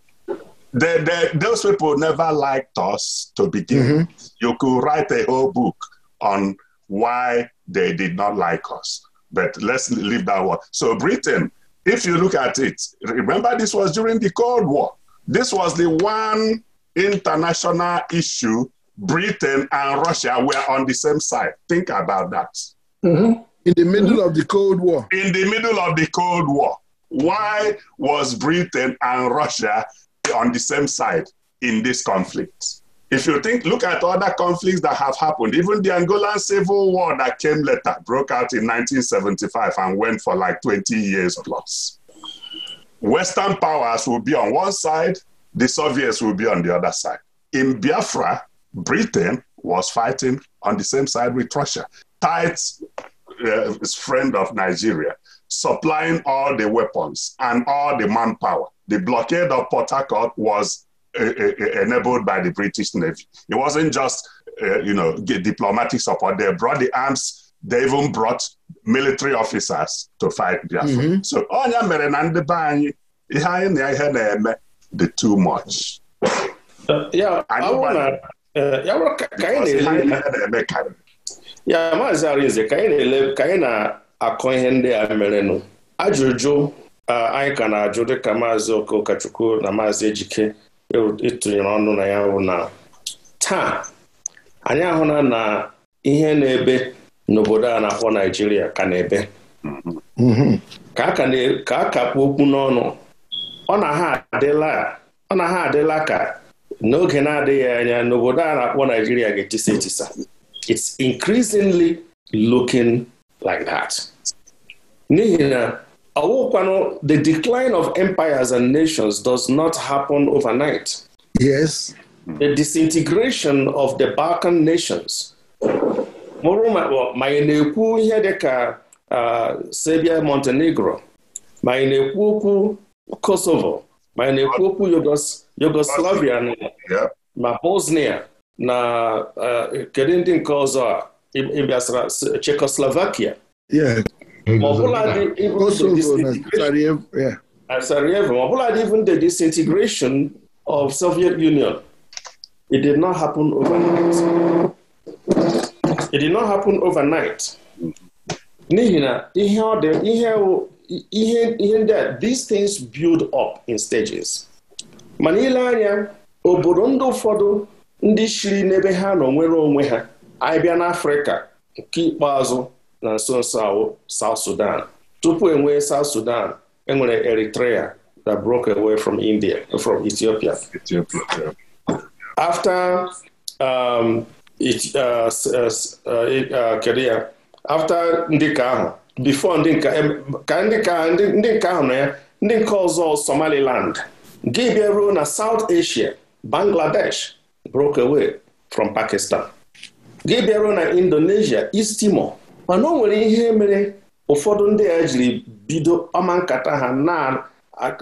Speaker 4: The the those people never liked us to begin mm -hmm. You could write a whole book on why they did not like us. But let's leave that one. So Britain, if you look at it, remember this was during the Cold War. This was the one international issue Britain and Russia were on the same side. Think about that. Mm-hmm. In the middle of the Cold War. In the middle of the Cold War. Why was Britain and Russia on the same side in this conflict? If you think, look at other conflicts that have happened, even the Angolan civil war that came later broke out in 1975 and went for like 20 years plus. Western powers will be on one side, the Soviets will be on the other side. In Biafra, Britain was fighting on the same side with Russia, tight uh, friend of Nigeria, supplying all the weapons and all the manpower. The blockade of Port Harcourt was uh, uh, uh enabled by the British Navy. It wasn't just uh, you know get diplomatic support; they brought the arms. They even brought military officers to fight Biafra. Mm-hmm. So onya oh, mere na ndị be anyị ihe anyị na ihe na-eme too much. Uh, yeah,
Speaker 3: Eh, ya ka
Speaker 4: ya maazị arize
Speaker 3: eh, ka anyị na-akọ ihe ndị a merenụ ajụjụ anyị ka na-ajụ dịka maazị Okachukwu na maazị Ejike ịtụnyere ọnụ e na ya bụ na taa anyị ahụla na ihe na-ebe n'obodo a na-akpọ Naijiria ka na-ebe mm-hmm. ka a ka okwu n'ọnụ ọ na ha adịla ka n'oge na-adịghị anya n'obodo a na-akpọ Naijiria ga-etisa etisa it's increasingly looking like that. n'ihi na ọwụkwanụ the decline of empires and nations does not happen overnight. Yes. The disintegration of the Balkan nations. mụrụ ma na-ekwu ihe dị ka Serbia Montenegro ma na-ekwu okwu Kosovo ma na-ekwu okwu Yugoslavia Yugoslavia ma Bosnia na eh, kedu ndị nke ọzọ a ịbịasara Czechoslovakia eh, Ma ọbụladị even the disintegration of Soviet Union it did not happen overnight it did not happen overnight n'ihi na ihe ọ ihe ihe ndị a these things build up in stages mana ile anya obodo ndị ụfọdụ ndị shiri n'ebe ha nọ nwere onwe ha anyị bịa n'afrịka nke ikpeazụ na nso nso ahụ South Sudan tupu enwee South Sudan enwere Eritrea that broke away from India from Ethiopia after um, it, uh, uh, uh, uh, kedu after ndị ka ahụ before ndị ka ndị ka ndị ahụ na ya ndị nke ọzọ Somaliland gị bịaruo na South Asia Bangladesh broke away from Pakistan gị bịaruo na Indonesia East Timor mana o nwere ihe mere ụfọdụ ndị a jiri bido ọma nkata ha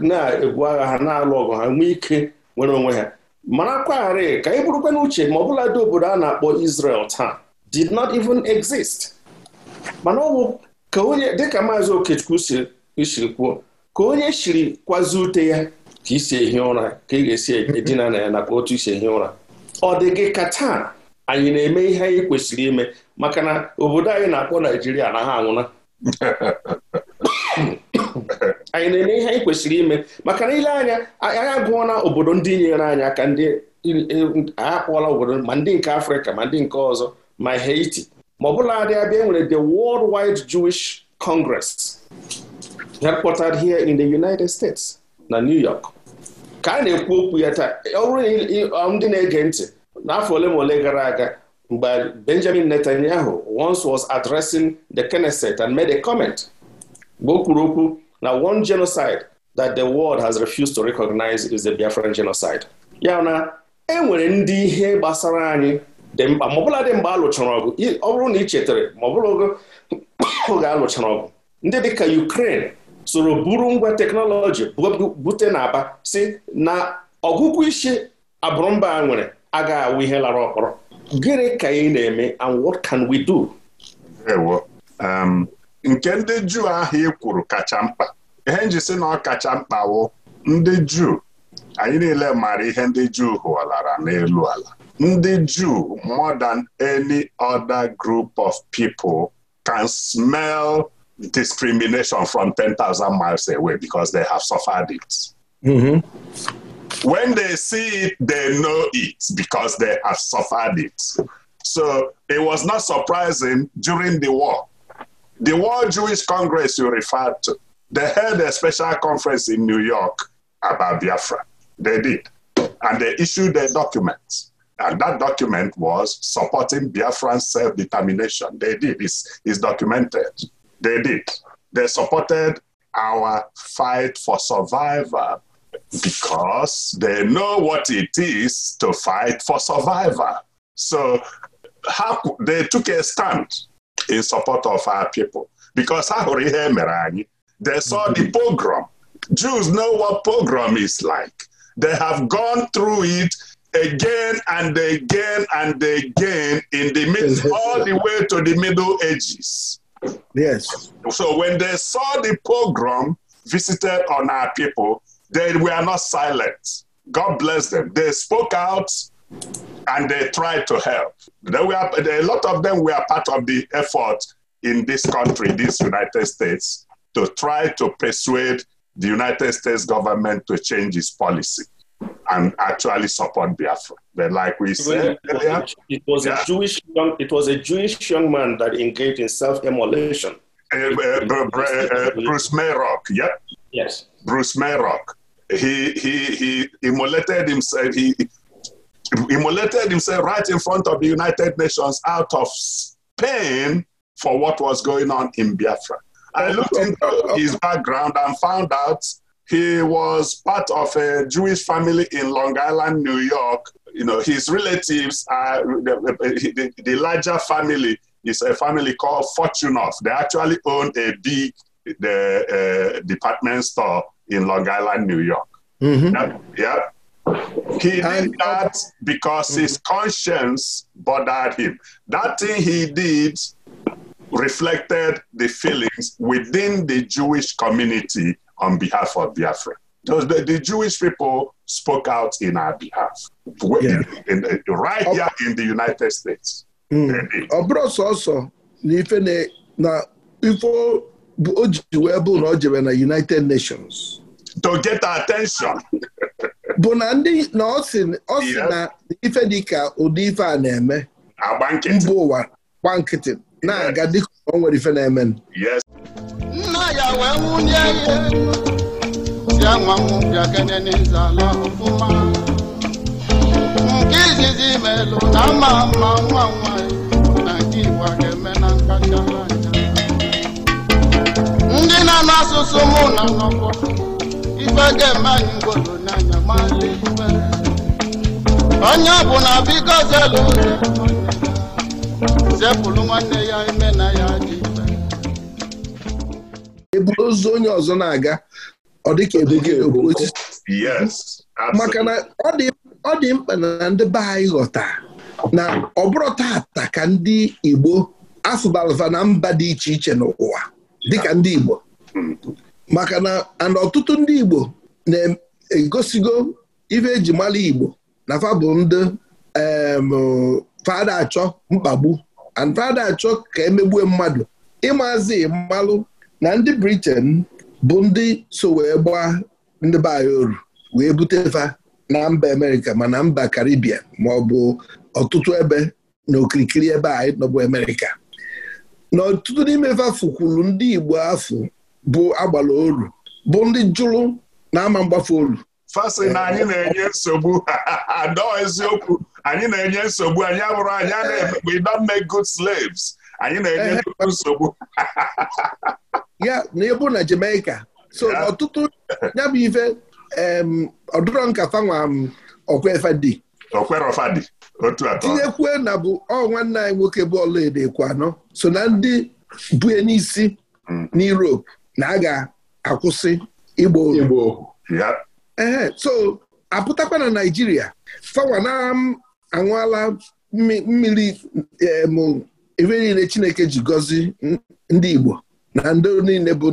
Speaker 3: na-egwu agha ha na-alụ ọgụ ha nwee ike nwere onwe ha marakwa gharị ka ị bụrụkwa uche ma ọbụla dị obodo a na-akpọ isrel taa did not even exist mana ọ bụ ka onye dịka maazị Okechukwu si kwuo ka onye shiri kwazi ute ya ka isi ehi ụra ka ị ga-esi edina na ya nakwa otu isi ehi ụra ọ dị gị ka taa anyị na-eme ihe anyị kwesịrị ime maka na obodo anyị na-akpọ Naijiria ha anwụna anyị na-eme ihe anyị kwesịrị ime maka na ile anya anyị agụọla obodo ndị nyere anyị aka ndị akpọla obodo ma ndị nke Afrịka ma ndị nke ọzọ ma Haiti ma ọ bụla dị abịa e nwere the Worldwide Jewish Congress headquartered here in the United States na New York ka a na-ekwu okwu ya taa e, ọ ndị na-ege ntị n'afọ ole ma ole gara aga mgbe Benjamin Netanyahu once was addressing the Knesset and made a comment mgbe o kwuru okwu na one genocide that the world has refused to recognize is the Biafran genocide ya na e nwere ndị ihe gbasara anyị dị mkpa ma dị mgbe a lụchara ọgụ ọ bụrụ na ị chetara ma oge alụchara ọgụ ndị dịka Ukraine soro buru ngwa teknọlọji bute na aba si na ọgụgụ isi abụrụmba a nwere agaghị awụ ihe lara ọkpọrọ gịnị ka anyị na-eme and what can we do?
Speaker 4: Um, nke ndị juu ahụ ị kwuru kacha mkpa ihe nji si na ọ kacha mkpa wụ ndị juu anyị niile maara ihe ndị juu hụlara n'elu ala ndị juu more than any other group of people can smell discrimination from 10,000 miles away because they have suffered it.
Speaker 2: Mm-hmm.
Speaker 4: When they see it, they know it because they have suffered it. So it was not surprising during the war. The World Jewish Congress you referred to, they held a special conference in New York about Biafra. They did. And they issued a document. And that document was supporting Biafran self determination. They did. it's documented. They did. They supported our fight for survival because they know what it is to fight for survival. So how they took a stand in support of our people because ha hụrụ ihe e mere anyị. They saw the mm-hmm. pogrom. Jews know what pogrom is like. They have gone through it again and again and again in the mid all the way to the Middle Ages. So when they saw the pogrom visited on our people, they were not silent. God bless them. They spoke out and they tried to help. a lot of them were part of the effort in this country, this United States, to try to persuade the United States government to change its policy. and actually support Biafra. But like we said earlier,
Speaker 3: it was a Jewish young, it was a Jewish young man that engaged in self-immolation.
Speaker 4: Eh, eh, eh, Bruce Mayrock, yep. Yes. Bruce Mayrock. He he he immolated himself. He immolated himself right in front of the United Nations out of pain for what was going on in Biafra. I looked into his background and found out He was part of a Jewish family in Long Island, New York. You know, his relatives are the, the, larger family is a family called Fortunoff. They actually own a big the, uh, department store in Long Island, New York. Mm-hmm. He did uh, that because his mm-hmm. conscience bothered him. That thing he did reflected the feelings within the Jewish community on behalf of Biafra. Because the, the Jewish people spoke out in our behalf, yeah. in, in, right here in the United States.
Speaker 2: ọ bụrụ sọsọ na ife na ife o ji wee bụ na o jere na United Nations
Speaker 4: to get attention.
Speaker 2: bụ na ndị na ọ sị na ife dị ka ụdị ife a na-eme mba ụwa gba nkịtị na-aga dịka ọ nwere ife na-eme
Speaker 4: nna
Speaker 5: ya wee nwunye ya bịa nwa m bịa kenene nzala ọfụma nke izizi melụ na ama mma nwa nwanyị na nke Igbo ga-eme na nkacha anya ndị na-anụ asụsụ mụ na nọkọ ife ga-eme anyị ngwolo n'anya mala ife onye ọbụla biko zelu ụzọ zepụrụ nwanne ya ime na ya dị
Speaker 2: eburu ozu onye ọzọ na-aga ọ dịka maka na ọ dị mkpa na ndị be anyị ghọta na ọ bụrụ tata ka ndị Igbo afụbalva na mba dị iche iche n'ụwa dịka ndị Igbo maka na ana ọtụtụ ndị Igbo na-egosigo ife eji mara Igbo na fa bụ ndị fada achọ mkpagbu and fada achọ ka emegbue mmadụ ịmazi mmalụ na ndị Britain bụ ndị so wee gbaa ndị be anyị oru wee butefa na mba Amerịka ma na mba Karibia ma ọ bụ ọtụtụ ebe na okirikiri ebe anyị nọbụ Amerịka na ọtụtụ n'ime fafụ kwuru ndị Igbo afọ bụ agbala oru bụ ndị jụrụ na ama mgbafe oru
Speaker 4: fasị anyị na-enye nsogbu eziokwu anyị na-enye nsogbu anyị abụrụ anyị a na-emegbu eh. we don't make good slaves anyị na-enye eh. nsogbu
Speaker 2: ya na ịbụ na Jamaica so ọtụtụ ya bụ ife ọdụrọ nkata nwa okwefadi
Speaker 4: okwerofadi otu atọ
Speaker 2: tinyekwu na bụ ọ nwanne anyị nwoke bụ ekwu anọ so na ndị bụ n'isi mm. n'Europe na a ga-akwụsị Igbo. Igbo. Eh, so apụtakwa na Naịjirịa fawa na anwụọla mmiri ebe niile Chineke ji gọzi ndị Igbo na ndị niile bụ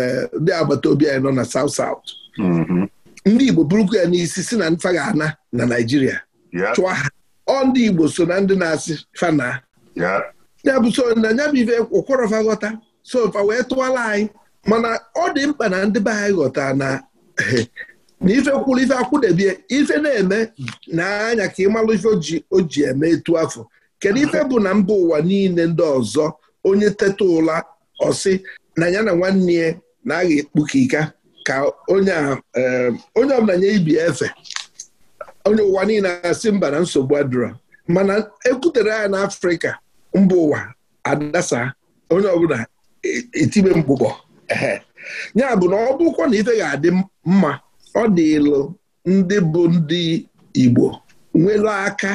Speaker 2: e, ndị agbata obi anyị nọ na South South. Mm-hmm. ndị Igbo bụrụkwa ya n'isi si na nfa ga-ana na Naịjirịa chụọ ha ọ ndị Igbo so na ndị na-asị fana ya bụ so na nya bụ ife ụkwọrọfa ghọta wee tụwala anyị mana ọ dị mkpa na ndị be anyị ghọta na na ife kwuru ife akwụdebie ife na-eme na anya ka ịmalụ ife o ji eme etu afọ kedu ife bụ na mba ụwa niile ndị ọzọ onye teta ụla ọsị na ya na nwanne ya na-agha ekpukika ka onye ọbụla nye ibi efe onye ụwa niile asị mba na nsogbu adịrọ mana ekwutere ya n'afrịka mba ụwa adasa onye ọbụla e, e, etibe mgbụgbọ ya bụ na ọ bụkwa na ife ga-adị mma ọ dịlụ ndị bụ ndị Igbo nwere aka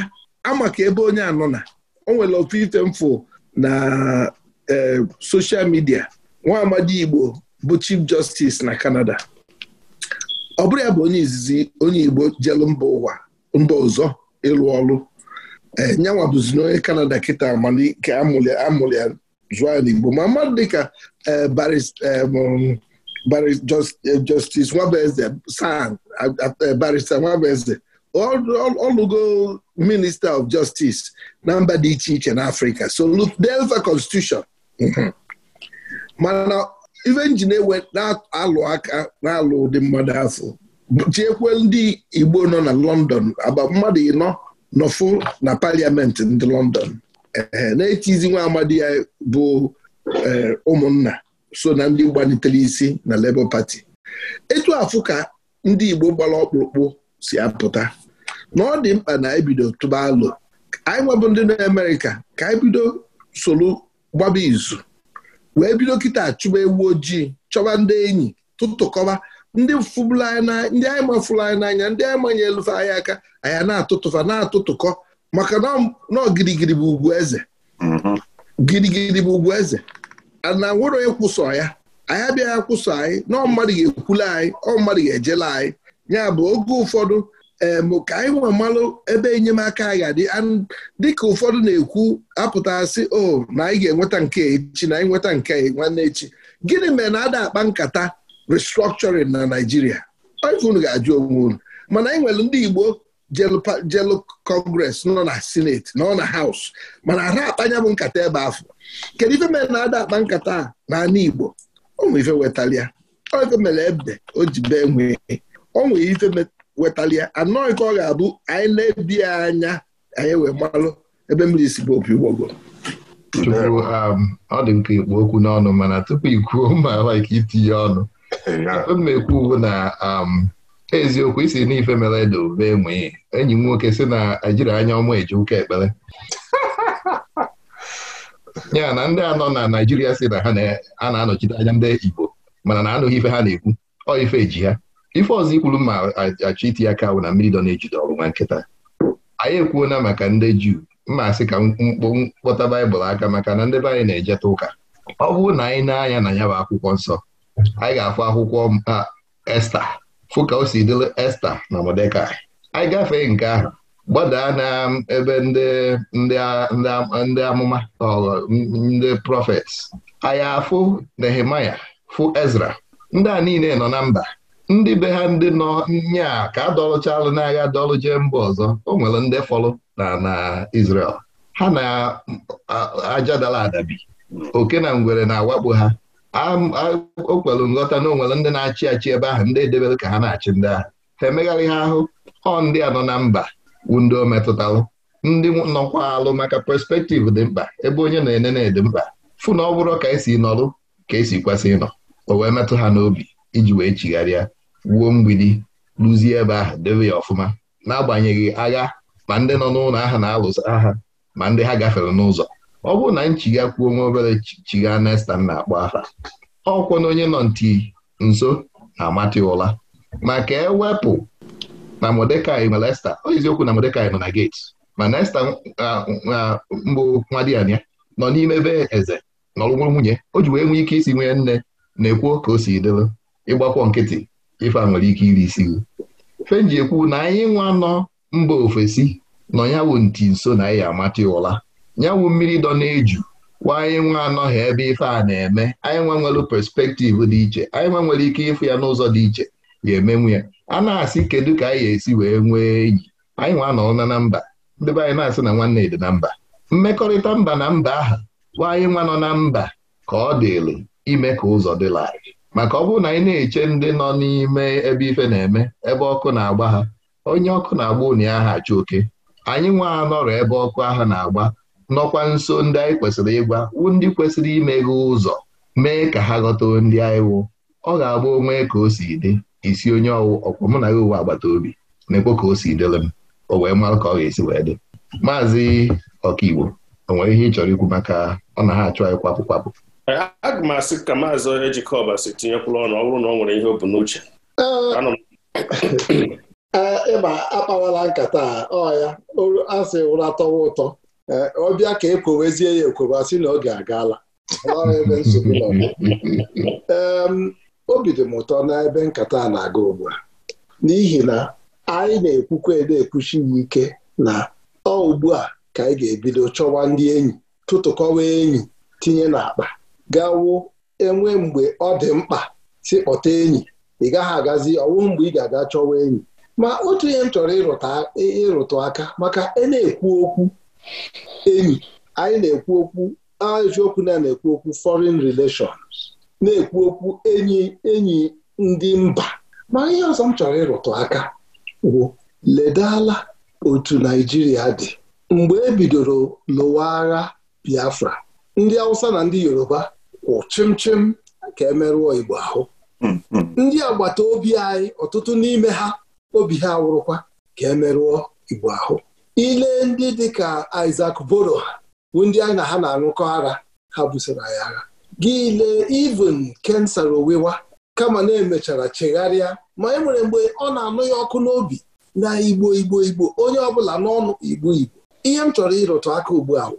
Speaker 2: amaka ebe onye anọ na o nwere ofu ife mfụ na e, soshal midia nwa amadi Igbo bụ chief justice na kanada. ọ bụrụ ya bụ onye izizi onye Igbo jelu mba ụwa mba ọzọ ịlụ ọrụ ee nyanwa bụzi n'onye Canada kịta amalike amụlị amụlị zụọ ya n'Igbo ma mmadụ dịka e, e, Eh, justice Nwabeze sang eh, eh, Barrister Nwabeze ọlụgo minista of justice na mba dị iche iche n'Africa Afrika Delta Constitution mm-hmm. mana even nji na-alụ aka na-alụ ụdị mmadụ afọ chiekwe ndị Igbo nọ na London agba mmadụ ịnọ nọfụ na paliamenti ndị London na-etizi nwa amadi ya bụ ụmụnna so na ndị gbalitere isi na Labour Party etu afụ ka ndị Igbo gbara ọkpụrụkpụ si apụta na ọ dị mkpa na ebido tụba alụ anyị nwebụ ndị na Amerịka ka anyị bido soro gbaba izu wee bido kịta chụba ewu ojii chọba ndị enyi tụtụkọba ndị fụbụla anyị ndị anyị anyị n'anya ndị anyị manye elufe anyị aka anyị na-atụtụfa na-atụtụkọ maka na ọ bụ ugwu eze gịrịgịrị bụ ugwu eze mm-hmm. na nwere onye kwụsọ ya anyị abịaghị akwụsọ anyị na ọ mmadụ ga-ekwula anyị ọ mmadụ ga-ejela anyị ya bụ oge ụfọdụ ka anyị nwe malụ ebe enyemaka anyị ga-adị dịka ụfọdụ na-ekwu apụtasị o oh, na anyị ga-enweta nke echi na anyị nweta nke nwanne echi gịnị mere na ada akpa nkata restructuring na naijiria unu ga-ajụ onwe unu mana anyị nwere ndị Igbo jelu kọngres nọ na sineti nọ na haus mana ara akpanya bụ nkata ebe afọ kedu ife mere na-ada akpa nkata n'ala Igbo onwe ife wetalia ife mere ebe o ji bee nwee onwe ife ya anọghị ka ọ ga-abụ anyị na-ebi anya anyị wee gbalụ ebe mmiri si bụ opi ụgbọgo um, ọ dị m ka
Speaker 1: ikpu okwu n'ọnụ mana tupu ikwuo ma like itinye ọnụ ekwu uwe na um, eziokwu isi n'ife mere ede obe enwe enyi m nwoke si na ejiri anya ọma eje ụka ekpere ya na ndị anọ na Naijiria si na ha a na-anọchite anya ndị Igbo mana na anụghị ife ha na-ekwu ọ ife eji ha ife ọzọ ikwuru ma achọ iti aka bụ na mmiri dọ na-ejide ọrụ nwa nkịta anyị ekwuona maka ndị Juu mma asị ka mkpọta baịbụl aka maka na ndị be anyị na-ejeta ụka ọ bụrụ na anyị na-anya na ya bụ akwụkwọ nsọ anyị ga-afụ akwụkwọ Esta fụ ka o si dịrị Esta na modeka anyị gafee nke ahụ gbadaa na ebe ndị ndị amụma ndị prọfet anya fụ Nehemaya fụ Ezra ndị a niile nọ na mba ndị be ha ndị nọ a ka adọlụchalụ n'agha dọlụ jee mba ọzọ o nwere ndị fọlụ na na Israel ha na ajadala adabi oke na ngwere na-awakpo ha o kwelu nghọta na onwere ndị na-achị achị ebe ahụ ndị edebere ka ha na-achị ndị ahụ ha emegharị ha ahụ ọ ndị a nọ na mba windo metụtalụ ndị nọkwa alụ maka perspektiv dị mkpa ebe onye na na-ede mkpa fụ na ọ bụrụ ka esi nọrụ ka esi kwesị ịnọ o wee metụ ha n'obi iji wee chigharịa wuo mgbidi rụzie ebe ahụ debe ya ọfụma n'agbanyeghị agha ma ndị nọ n'ụlọ ahụ na-alụsa agha ma ndị ha gafere n'ụzọ ọ bụrụ na nchiga kwuo nwa obere chiga nesta na-akpọ aha ọkwụ na onye nọ nti nso na-amata ụra e ewepụ na Modekai nwere Esta eziokwu na Modekai nọ na geti mana Esta mbụ nwa di ya nọ n'ime be eze nọrụnwa nwunye o ji wee nwee ike isi nwee nne na ekwuo ka o si dịrị ịgbakwọ nkịtị ife a nwere ike iri isi fenji ekwu na anyị nwa nọ mba ofesi nọ yawụ nti nso na ya amata ụra yawụ mmiri dọ na-eju wa anyị nwa anọghị ebe ife a na-eme anyị nwa nwere perspektiv dị iche anyị nwa nwere ike ịfụ ya n'ụzọ dị iche ya emenwu ya a na-asị kedu ka anyị ga-esi wee nwee enyi anyị nwa nọrọ na mba ndị be anyị na-asị na nwanne dị na mba mmekọrịta mba na mba aha nwaanyị anyị nwa nọ na mba ka ọ dịrị ime ka ụzọ dị larịị maka ọ bụrụ na anyị na-eche ndị nọ n'ime ebe ife na-eme ebe ọkụ na-agba ha onye ọkụ na-agba ụnụ ya ha achụ oke anyị nwa anọrọ ebe ọkụ aha na-agba nọkwa nso ndị anyị kwesịrị ịgwa ndị kwesịrị gị ụzọ mee ka ha ghọta ndị anyị wụ ọ ga-agba onwe ka o si dị isi onye ọkwa mụ na ya uwe agbata obi na-ekpo ka o si dịrị m o wee mara ka ọ ga-esi wee dị maazị ọkaigbo o nwere ihe ị chọrọ ikwu maka ọ na ha achụ anyị kwapụ kwapụ
Speaker 3: aga m asị ka maazị ejikọba si tinyekwula ọnụ ọ bụrụ na ọ nwere ihe o bu n'uche
Speaker 6: ịba akpawala nkata ya asị ụra tọwa ụtọ ọbịa ka e ekwewezie ya ekweba sị na oge agaala ee obi dị m ụtọ n'ebe nkata a na-aga ugbu a n'ihi na anyị na-ekwukwa ede ekwuchi ya ike na ọ ugbu a ka anyị ga-ebido chọwa ndị enyi tụtụkọwa enyi tinye n'akpa gawo enwe mgbe ọ dị mkpa si kpọta enyi ị gaghị agazi ọwụ mgbe ị ga-aga chọwa enyi ma otu ihe m chọrọ ịrụtụ aka maka e na-ekwu okwu enyi anyị na-ekwu okwu eziokwu na na-ekwu okwu foreign relations na-ekwu okwu enyi enyi ndị mba ma ihe ọzọ m chọrọ ịrụtụ aka bụ ledala otu naijiria dị mgbe e bidoro lụwa agha Biafra ndị Hausa na ndị Yoruba kwụ chimchim ka emerụọ Igbo ahụ hmm, hmm. ndị agbata obi anyị ọtụtụ n'ime ha obi ha awụrụkwa ka emerụọ Igbo ahụ ile ndị dị ka Boro bụ ndị anyị na ha na-arụkọ ara ha busoro anyị agha gile lee even kensara owewa kama na-emechara chegharịa ma e nwere mgbe ọ na-anụ ya ọkụ n'obi na igbo igbo igbo onye ọbụla n'ọnụ igbo igbo ihe m chọrọ ịrụtụ aka ugbu a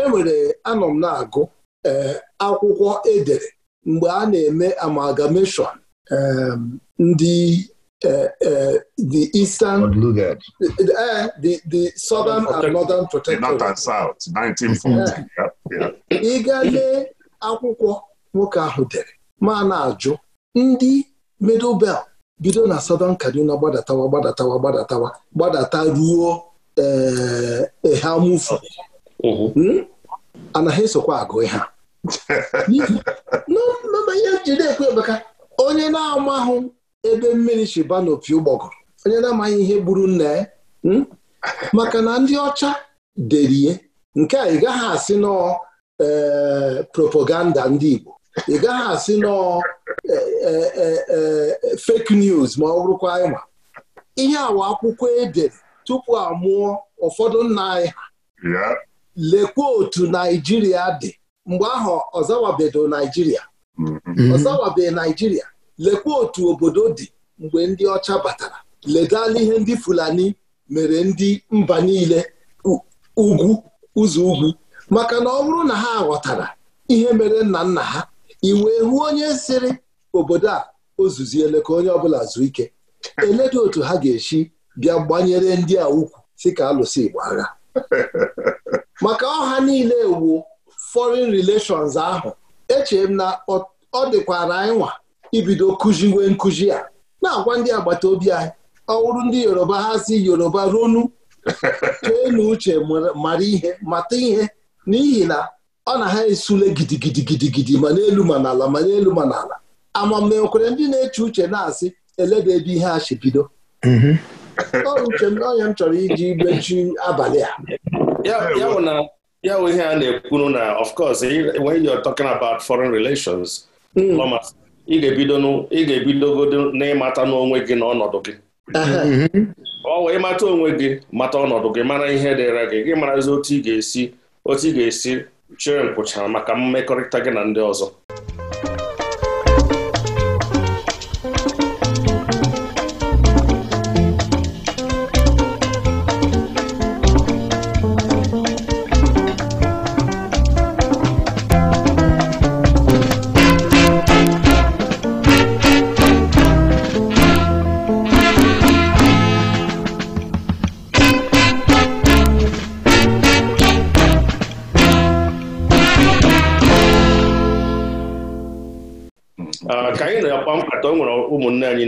Speaker 6: enwere anọ m na-agụ eh, akwụkwọ edere mgbe a na-eme amalgamation ehm, ndị eh, eh, the Eastern the Southern and
Speaker 4: Northern Protectorate. and South, 1940. Ị gaa
Speaker 6: lee akwụkwọ nwoke ahụ dere ma na-ajụ ndị middle bido na Southern Kaduna gbadatawa gbadatawa gbadatawa gbadata ruo ehamufu eh, mm-hmm. hmm? anaghị esokwa agụ ha ihe jide ekwe onye na-amahụ ebe mmiri shiba n'opi ụgbọgụrụ onye na-amaghị ihe gburu nna ya hmm? maka na ndị ọcha derie nke a ị gaghị asị nọọ ee eh, propaganda ndị Igbo ị gaghị asị nọọ fake news ma ọ bụrụkwa ịma e ihe awa akwụkwọ edere tupu a mụọ ụfọdụ nna anyị
Speaker 4: ha
Speaker 6: lekwa otu Naijiria dị mgbe ahụ ọzawabedo Naijiria ọzawabeghị Naijiria lekwa otu obodo dị mgbe ndị ọcha batara ledala ihe ndị Fulani mere ndị mba niile ugwu ụzọ ugwu maka na ọ bụrụ na ha ghọtara ihe mere nna nna ha iwe hụ onye sịrị obodo a ozuziele ka onye ọbụla zuo ike eledo otu ha ga-esi bịa gbanyere ndị a ukwu si ka alụsị Igbo agha maka ọha niile ewu foreign relations ahụ eche m na ọ dịkwara anyị nwa ibido kụziwe nkụzi a na-agwa ndị agbata obi anyị ọwụrụ ndị Yoruba ha si Yoruba ronu chee na uche mara ihe mata ihe n'ihi na ọ na ha esule gidigidi gidigidi ma n'elu ma n'ala ma n'elu ma n'ala amammekwere ndị na-eche uche na-asị eleda ebe ihe a chibido mhm. uche m na m chọrọ iji gbechi abalị a
Speaker 3: ya bụ ihe a na-ekwuru na of course when you are talking about foreign relations hmm. ị ga-ebidogodo n'ịmata n'onwe gị na ọnọdụ gị
Speaker 5: mhm.
Speaker 3: ọ wee ịmata onwe gị mata ọnọdụ gị mara ihe dịra gị gị marazi otu ị ga-esi otu ị ga-esi chere nkwụcha maka mmekọrịta gị na ndị ọzọ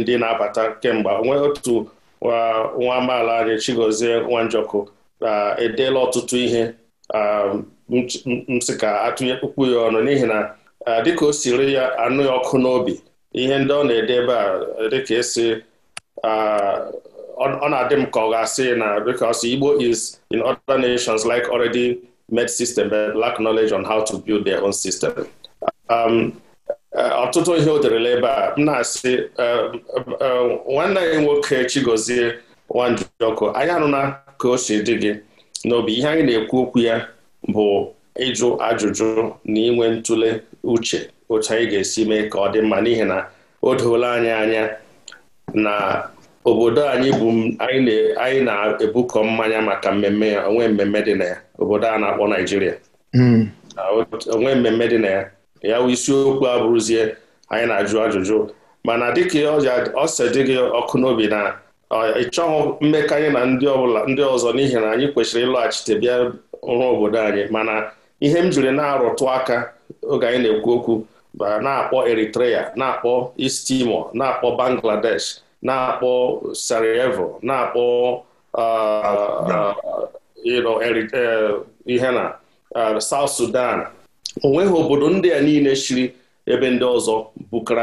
Speaker 3: ndị na-abata kemgbe onwe otu nwa amaala anyị Chigozie Nwanjọkụ edeela ọtụtụ ihe msika sị ka atụnye kpukpu ya ọnụ n'ihi na dịka o siri ya anụ ya ọkụ n'obi ihe ndị ọ na edebe a dịka esi ọ na-adị m ka ọ ga-asị na because Igbo is in other nations like already made system but lack knowledge on how to build their own system. Um, Eh, ọtụtụ ihe o derela ebe a m na-asị eh, eh, nwanne anyị nwoke Chigozie Nwanjọkụ anyị anụna ka o si dị gị n'obi ihe anyị na-ekwu okwu ya bụ ịjụ ajụjụ na inwe ntụle uche otu anyị ga-esi mee ka ọ dị mma n'ihi na o doola anyị anya na obodo anyị bụ anyị na-ebukọ mmanya maka mmemme ya onwe mmemme dị na ya obodo a na-akpọ Naijiria hmm. onwe mmemme dị na ya ya bụ isiokwu abụrụzie anyị na-ajụ ajụjụ mana dịka ọ si dị gị ọkụ n'obi na ị chọghị mmekọ anyị na ndị ọbụla ndị ọzọ n'ihi na anyị kwesịrị ịlọghachite bịa ọrụ obodo anyị mana ihe m jiri na-arụtụ aka oge anyị na-ekwu okwu na-akpọ Eritrea na-akpọ East Timor na-akpọ Bangladesh na-akpọ Sarajevo na-akpọ uh, uh, uh, ihe na South Sudan onweghị obodo ndị a niile chiri ebe ndị ọzọ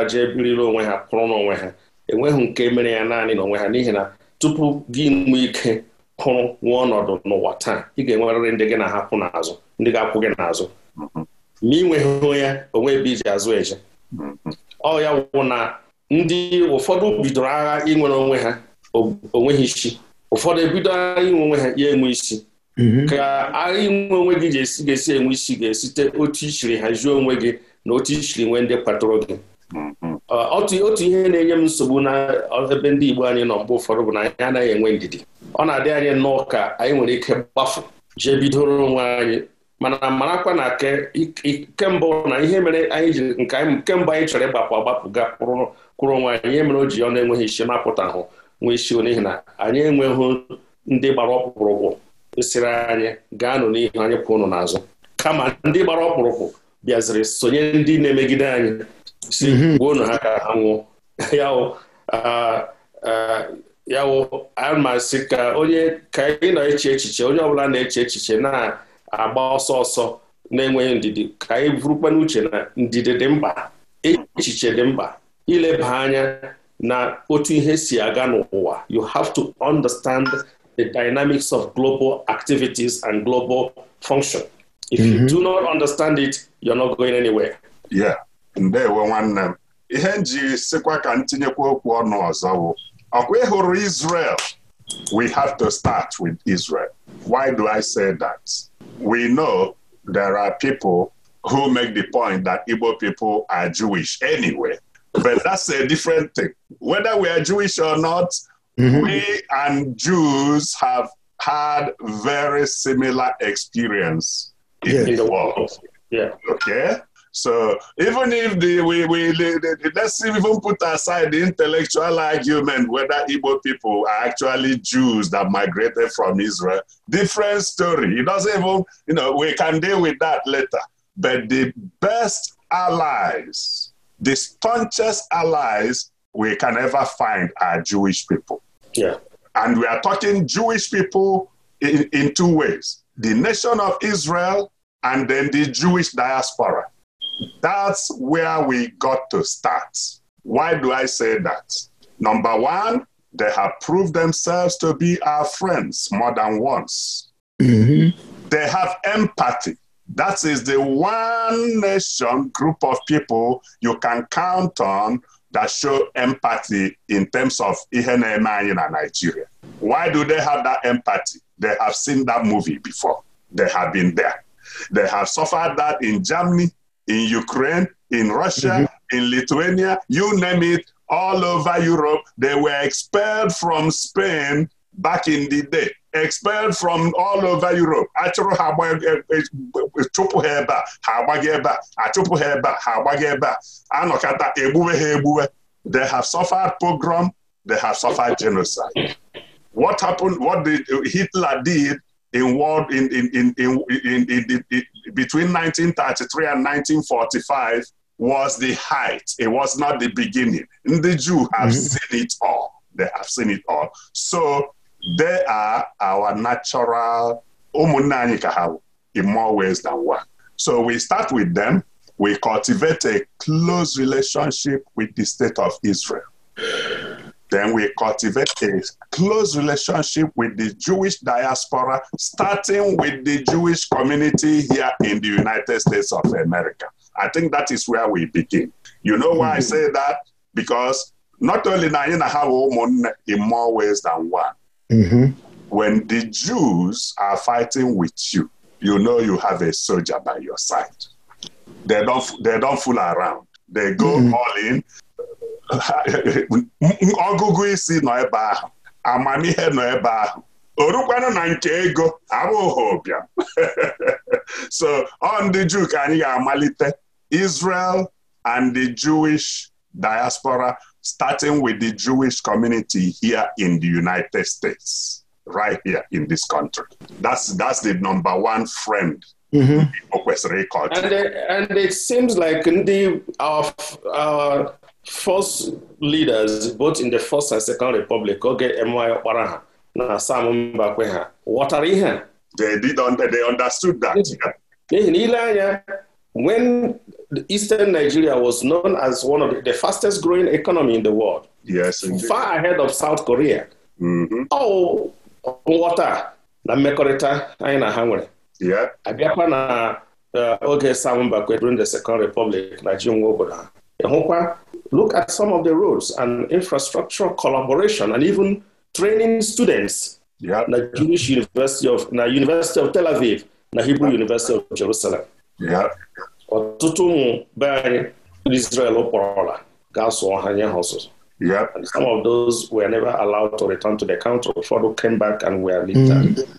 Speaker 3: je biriri onwe ha kụrụ n'onwe ha enweghị nke mere ya naanị n'onwe ha n'ihi na tupu gị nwee ike kụrụ nwa ọnọdụ n'ụwa taa ị ga-enwerịrị ndị gị na-ahapụ n'azụ ndị ga-akwụ gị n'azụ ma ị ya onwe ebe iji azụ eje ọ ya wụ na ndị ụfọdụ bidoro agha inwere onwe ha onweghị isi ụfọdụ ebido agha inwe onwe ha ya enwe isi Mm-hmm. ka agha inwe onwe gị ga-esi enwe isi ga-esite otu ichiri hazie onwe gị na otu ichiri nwee ndị kpatụrụ gị mm-hmm. otu ihe na-enye m nsogbu na ebe ndị Igbo anyị nọ mgbe ụfọdụ bụ na anyị anaghị enwe ndidi ọ na-adị anyị nnọọ ka anyị nwere ike gbafu jee bidoro onwe anyị mana marakwa na kemgbe na ihe mere anyị ji nke anyị kemgbe anyị chọrọ ịgbapụ agbapụ ga kwụrụ onwe anyị ihe mere o ji ọ na-enweghị isi mapụta ahụ nwee isi n'ihi na anyị enweghị ndị gbara ọkpụrụkwụ sịrị anyị gaanụ n'ihu anyị pụ ụnụ n'azụ kama ndị gbara ọkpụrụkpụ bịaziri sonye ndị na-emegide anyị si mhm. gbuo ụnụ ha ka ha nwụọ yawo amasị ka onye ka ị na-eche echiche onye ọbụla na-eche echiche na-agba ọsọ ọsọ na-enweghị ndidi ka anyị bụrụkwana uche na ndidi dị mkpa echiche dị mkpa ileba anya na otu ihe si aga n'ụwa you have to understand the dynamics of global activities and global function. If mm -hmm. you mm-hmm. do not understand it, you're not going anywhere.
Speaker 4: Yeah, ndewo nwanne m ihe m ji ntinyeokwu ka m tinyekwa okwu ọnụ ọzọ bụ ọkwa ị Israel we have to start with Israel. Why do I say that? We know there are people who make the point that Igbo people are Jewish anyway, but that's a different thing. Whether we are Jewish or not, Mm-hmm. We and Jews have had very similar experience in yes. the world. Yeah. Okay. So even if the we, we let's even put aside the intellectual argument whether Igbo people are actually Jews that migrated from Israel, different story. It doesn't even you know we can deal with that later. But the best allies, the staunchest allies we can ever find are Jewish people. Yeah. And we are talking Jewish people in, in two ways the nation of Israel and then the Jewish diaspora. That's where we got to start. Why do I say that? Number one, they have proved themselves to be our friends more than once. Mm-hmm. They have empathy. That is the one nation group of people you can count on that show empathy in terms of ihe na-eme anyị na Nigeria. Why do they have that empathy? They have seen that movie before. They have been there. They have suffered that in Germany, in Ukraine, in Russia, mm in Lithuania, you name it, all over Europe. They were expelled from Spain back in the day. expelled from all over Europe achụrụ ha e, e, chụpụ ha ebe a ha agbaghị ebe a achụpụ ha ebe a ha agbaghị ebe a egbuwe ha egbuwe they have suffered pogrom they have suffered genocide what happened what did Hitler did in world in in in in, in, in, in between 1933 and 1945 was the height it was not the beginning ndị Jew have mm -hmm. seen it all they have seen it all so they are our natural ụmụnne anyị ka ha in more ways than one. So we start with them, we cultivate a close relationship with the state of Israel. Then we cultivate a close relationship with the Jewish diaspora, starting with the Jewish community here in the United States of America. I think that is where we begin. You know why I mm-hmm. say that? Because not only na anyị na ha bụ ụmụnne in more ways than one. Mm-hmm. When the Jews are fighting with you, you know you have a soldier by your side. They don't, they don't fool around. They go mm-hmm. all in. ọgụgụ isi nọ ebe ahụ amamihe nọ ebe ahụ orukwanụ na nke ego abụghị ụbịam so ọ ndị Juu ka anyị ga-amalite Israel and the Jewish diaspora starting with the Jewish community here in the United States, right here in this country. That's, that's the number one friend Igbo kwesịrị culture. And it seems like ndị of our first leaders both in the first and second
Speaker 3: republic oge Emeaghi Ọkpara ha na Sam Mbakwe ha ghọtara ihe They did, they understood that. N'ihi na ile anya when Eastern Nigeria was known as one of the fastest growing economy in the world. Yes, far ahead of South Korea. Mm-hmm. Oh, nghọta na mmekọrịta anyị na ha nwere. Abịakwa na uh, oge Samba kwe during the Second Republic na ji obodo look at some of the roads and infrastructure collaboration and even training students na Jewish University of na University of Tel Aviv na Hebrew University of Jerusalem. ọtụtụ ụmụ be anyị ndị Israel kpọrọla ga-asụọ ha nye ha ọsụsụ And some of those were never allowed to return to the country. Ụfọdụ came back and were mm. liberated.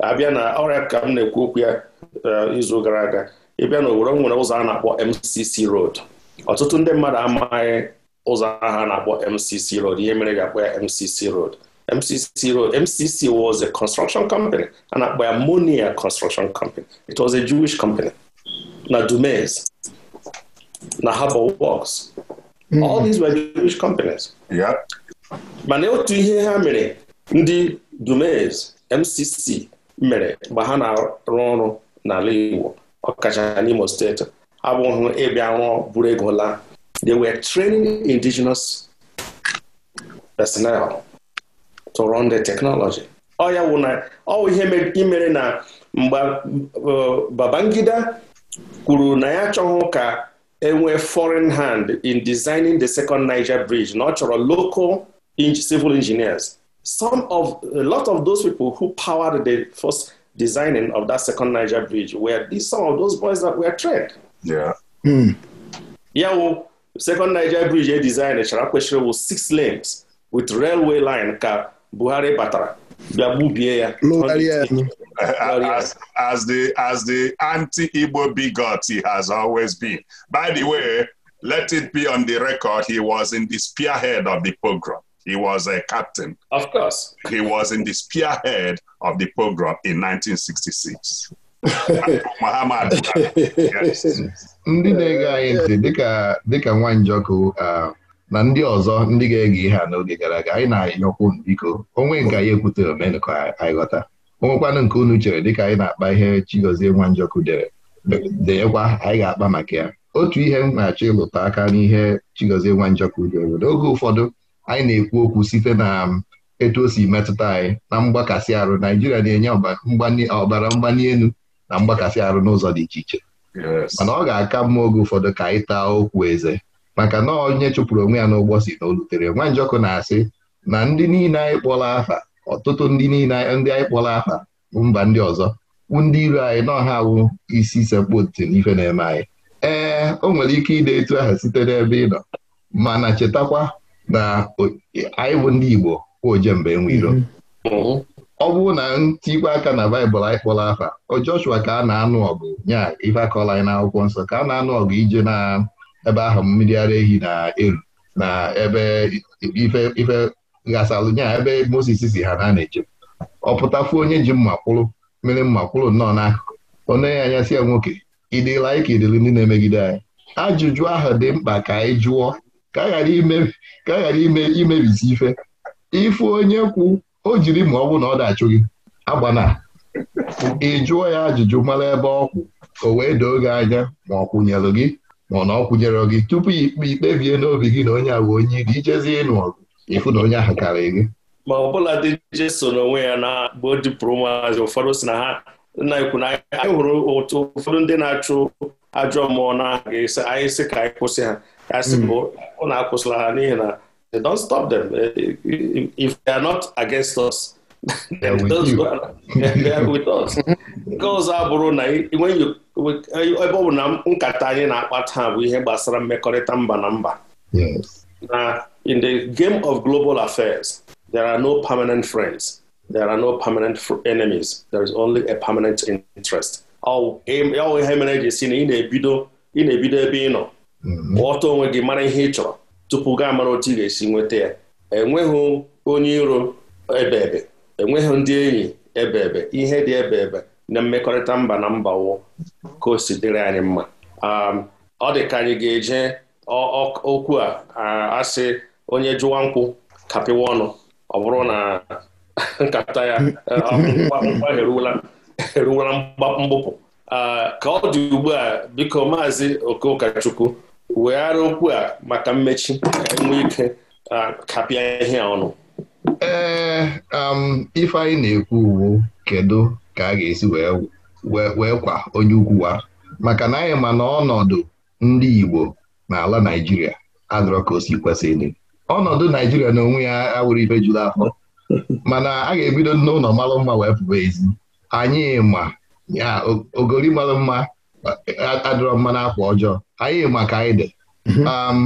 Speaker 3: Abịa na ọrịa ka m na-ekwu okwu ya eh, izu gara aga ịbịa na Owerri nwere ụzọ a na-akpọ MCC Road. Ọtụtụ ndị mmadụ amaghị ụzọ ha na-akpọ MCC Road ihe mere ga-akpọ ya MCC Road. MCC Road MCC was a construction company a na-akpọ ya Monia Construction Company. It was a Jewish company. na Dumais, na Harbour Works. Hmm. All these were Jewish companies. Yeah. mana otu ihe ha mere ndị Dumais MCC mere mgbe ha na-arụ ọrụ n'ala Igbo ọkacha n'Imo steeti abụghị ịbịa rụọ buru ego they were training indigenous personnel to run the technology ọ ya wụ na ọ ihe imere na mgbe uh, Babangida kwuru na ya chọghị ka enwee foreign hand in designing the second Niger bridge na ọ local civil engineers some of a lot of those people who powered the first designing of that second Niger bridge were some of those boys that were trained. Yeah. Mm. ya wụ second Niger bridge e design e chara kwesịrị wụ six lanes with railway
Speaker 4: line ka Buhari batara bịa gbubie ya as, the as the anti-Igbo bigot he has always been by the way let it be on the record he was in the spearhead of the pogrom he was a captain of course he was in the spearhead of the pogrom in 1966 Muhammad Buhari yes
Speaker 1: ndị na-ege anyị ntị dịka nwa njọkụ uh, na ndị ọzọ ndị ga-ege ihe a n'oge gara aga anyị na-anyọkwu biko onwe nke anyị ekwutere omenụka anyị ghọta onwekwanụ nke unu chere dịka anyị na-akpa ihe Chigozie Nwanjọkụ dere denyekwa anyị ga-akpa maka ya otu ihe m na-achọ ịlụta aka n'ihe Chigozie Nwanjọkụ dere n'oge ụfọdụ anyị na-ekwu okwu site na um, etu o si metụta anyị na mgbakasị arụ Naijiria na-enye ọbara mgbali elu na mgbakasị arụ n'ụzọ dị iche iche mana ọ ga-aka mma oge ụfọdụ ka anyị taa okwu eze maka na onye chụpụrụ onwe ya n'ụgbọ si na o lutere nwa njọkụ na-asị na ndị niile anyị kpọrọ afa ọtụtụ ndị niile ndị anyị kpọrọ afa mba ndị ọzọ ndị iro anyị ọha awụ isi sekpu ntị n'ife na-eme anyị ee o nwere ike ide etu aha site n'ebe ị nọ mana chetakwa na anyị bụ ndị Igbo ojembe nwe iro mm-hmm. ọ bụrụ na ntikwa aka na baịbụl anyị kpọrọ afa o Joshua ka a na-anụ ọgụ nye ife akọrọ anyị n'akwụkwọ nsọ ka a na-anụ ọgụ ije na ebe ahụ mmiri ara ehi na-eru na ebe ife ife nya ebe Moses si ha na na eje ọ pụtafu onye ji mma mmiri mma nnọọ n'akụkụ onye ya anya si ya nwoke ịdịla ike ịdịrị ndị na-emegide anyị ajụjụ ahụ dị mkpa ka anyị jụọ ka a ghara ime imebisi ife ife onye kwu o jiri ma ọ bụ na ọ dachụ gị agbana ị jụọ ya ajụjụ mara ebe ọ kwụ o wee doo gị anya ma ọ kwụnyelụ gị ma na ọ kwụnyere gị tupu ikpe ikpebie n'obi gị na onye a bụ onye iri ijezie ịnụ ọgụ ịfụ na onye ahụ karịrị
Speaker 3: gị ma ọ bụla dị jeso n'onwe ya na bụ dipụrụ ụmụazị ụfọdụ si na ha nna ikwu na anyị hụrụ ụtụ ụfọdụ ndị na-achụ ajọ mmụọ na anyị sị ka anyị kwụsị ha ya sị hmm. bụ na akwụsịla ha n'ihi na they don't stop them if they are not against us nke ọzọ abụrụ na e- ebe ọ bụ na nkata anyị na-akpa taa bụ ihe gbasara mmekọrịta mba na mba na in the game of global affairs there are no permanent friends there are no permanent enemies there is only a permanent interest ọ e- ihe mere eji si na ị na-ebido ị na-ebido ebe ị nọ mm-hmm. ọta onwe gị mara ihe ị chọrọ tupu gaa mara otu ị ga-esi nweta ya enweghị onye iro ebe ebe enweghị ndị enyi ebebe ihe dị ebebe na mmekọrịta mba na mba wụ ka o si dịrị anyị mma um, ọ dị ka anyị ga-eje okwu a uh, asị onye jụwa nkwụ kapịwa ọnụ ọ bụrụ na nkata ya uh, nkwa eruwela mbupu uh, ka ọ dị ugbu a biko maazị okoụkachukwu weghara okwu a maka mmechi ka ike kapịa ihe ọnụ
Speaker 1: ee eh, um, ife anyị na-ekwu uwu kedu ka a ga-esi wee kwa onye wa maka na anyị ma na ọnọdụ ndị Igbo n'ala Naịjirịa adọrọ ka o si kwesị ọnọdụ naijiria na onwe ya awụrụ ife juru afọ mana a ga-ebido n'ụlọ malụ mma wee pụba ezi anyị ma ya ogori mma adịrọ mma n'akwa ọjọọ anyị ma ka anyị dị mhm. um,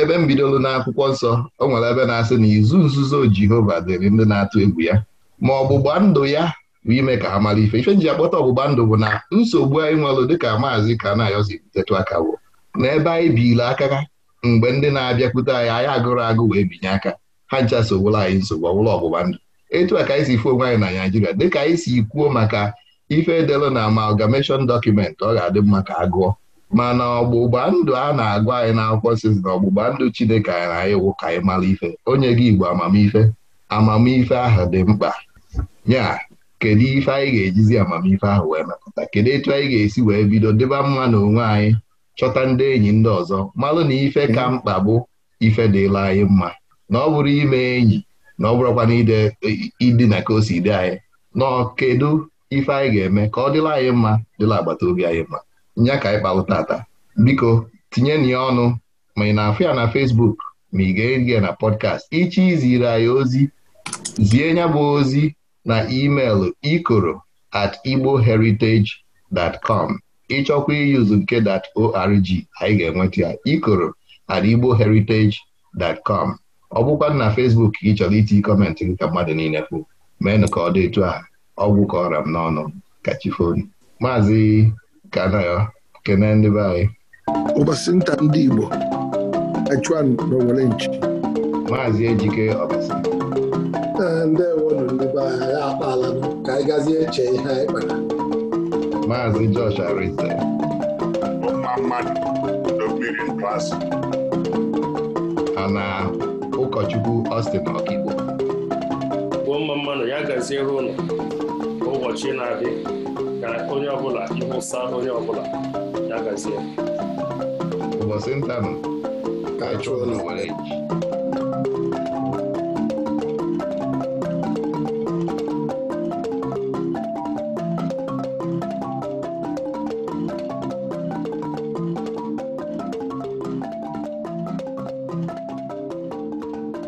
Speaker 1: ebe m bidoro n'akwụkwọ nsọ o nwere ebe na-asị na izu nzuzo Jehova dịrị ndị na-atụ egwu ya ma ọgbụgba ndụ ya bụ ime ka ha mara ife ife nji akpọta ọgbụgba ndụ bụ na nsogbu anyị nwere dịka maazị ka na-ayọzi butetu aka bụ na ebe anyị biile aka ha mgbe ndị na-abịakwute anyị anyị agụrụ agụ wee binye aka ha ncha sogboro anyị nsogbu ọbụla ọgbụgba ndụ etu a ka anyị si fụ onwe anyị na Naịjirịa dịka anyị si kwuo maka ife edelụ na amalgamation dọkụmentị ọ ga-adị mma ka agụọ mana ọgbụgba ndụ a na-agwa anyị n'akwụkwọ sizi na ọgbụgba ndụ Chineke anyị na iwu ka anyị mara ife onye gị Igbo amamife amamife ahụ dị mkpa ya kedu ife anyị ga-ejizi amamife ahụ wee mepụta kedu etu anyị ga-esi wee bido deba mma na onwe anyị chọta ndị enyi ndị ọzọ malụ na ife ka mkpa bụ ife dịla anyị mma na ọ bụrụ ime enyi na ọ bụrụkwa na idina ka o si dị anyị na kedu ife anyị ga-eme ka ọ dịla anyị mma dịla agbata obi anyị mma nya ka anyị balụ tata biko tinye na ya ọnụ ma ị na-afụ ya na Facebook ma ị ga-eri ya na pọdkast ichi ziri anyị ozi zie nya bụ ozi na email ikoro at igboheritage.com ịchọkwa iyuzu nke .org anyị ga-enweta ya ikoro at igboheritage.com ọ bụkwa na Facebook gị chọrọ itinye kọmentị gị ka mmadụ niile kwụ meenụ ka ọ dị etu a ọgwụ ka ọra m n'ọnụ ka chi maazị kana e ya kene e ndị be anyị nta ndị
Speaker 2: Igbo achụan n'owere nchi maazị Ejike ọbasinta
Speaker 6: ndewonu ndị be anyị ya akpala ka anyị gazie eche ihe anyị kpara
Speaker 1: maazị Josh Arịsa
Speaker 6: mma mmadụ
Speaker 1: mmiri ha na ụkọchukwu Austin Ọkigbo
Speaker 3: gbuo mma mmanụ ya gazie ụlọ ụbọchị na adị ka onye ọbụla ịwụsa onye ọbụla ya gazie ụbọchị nta nọ ka chụọ na were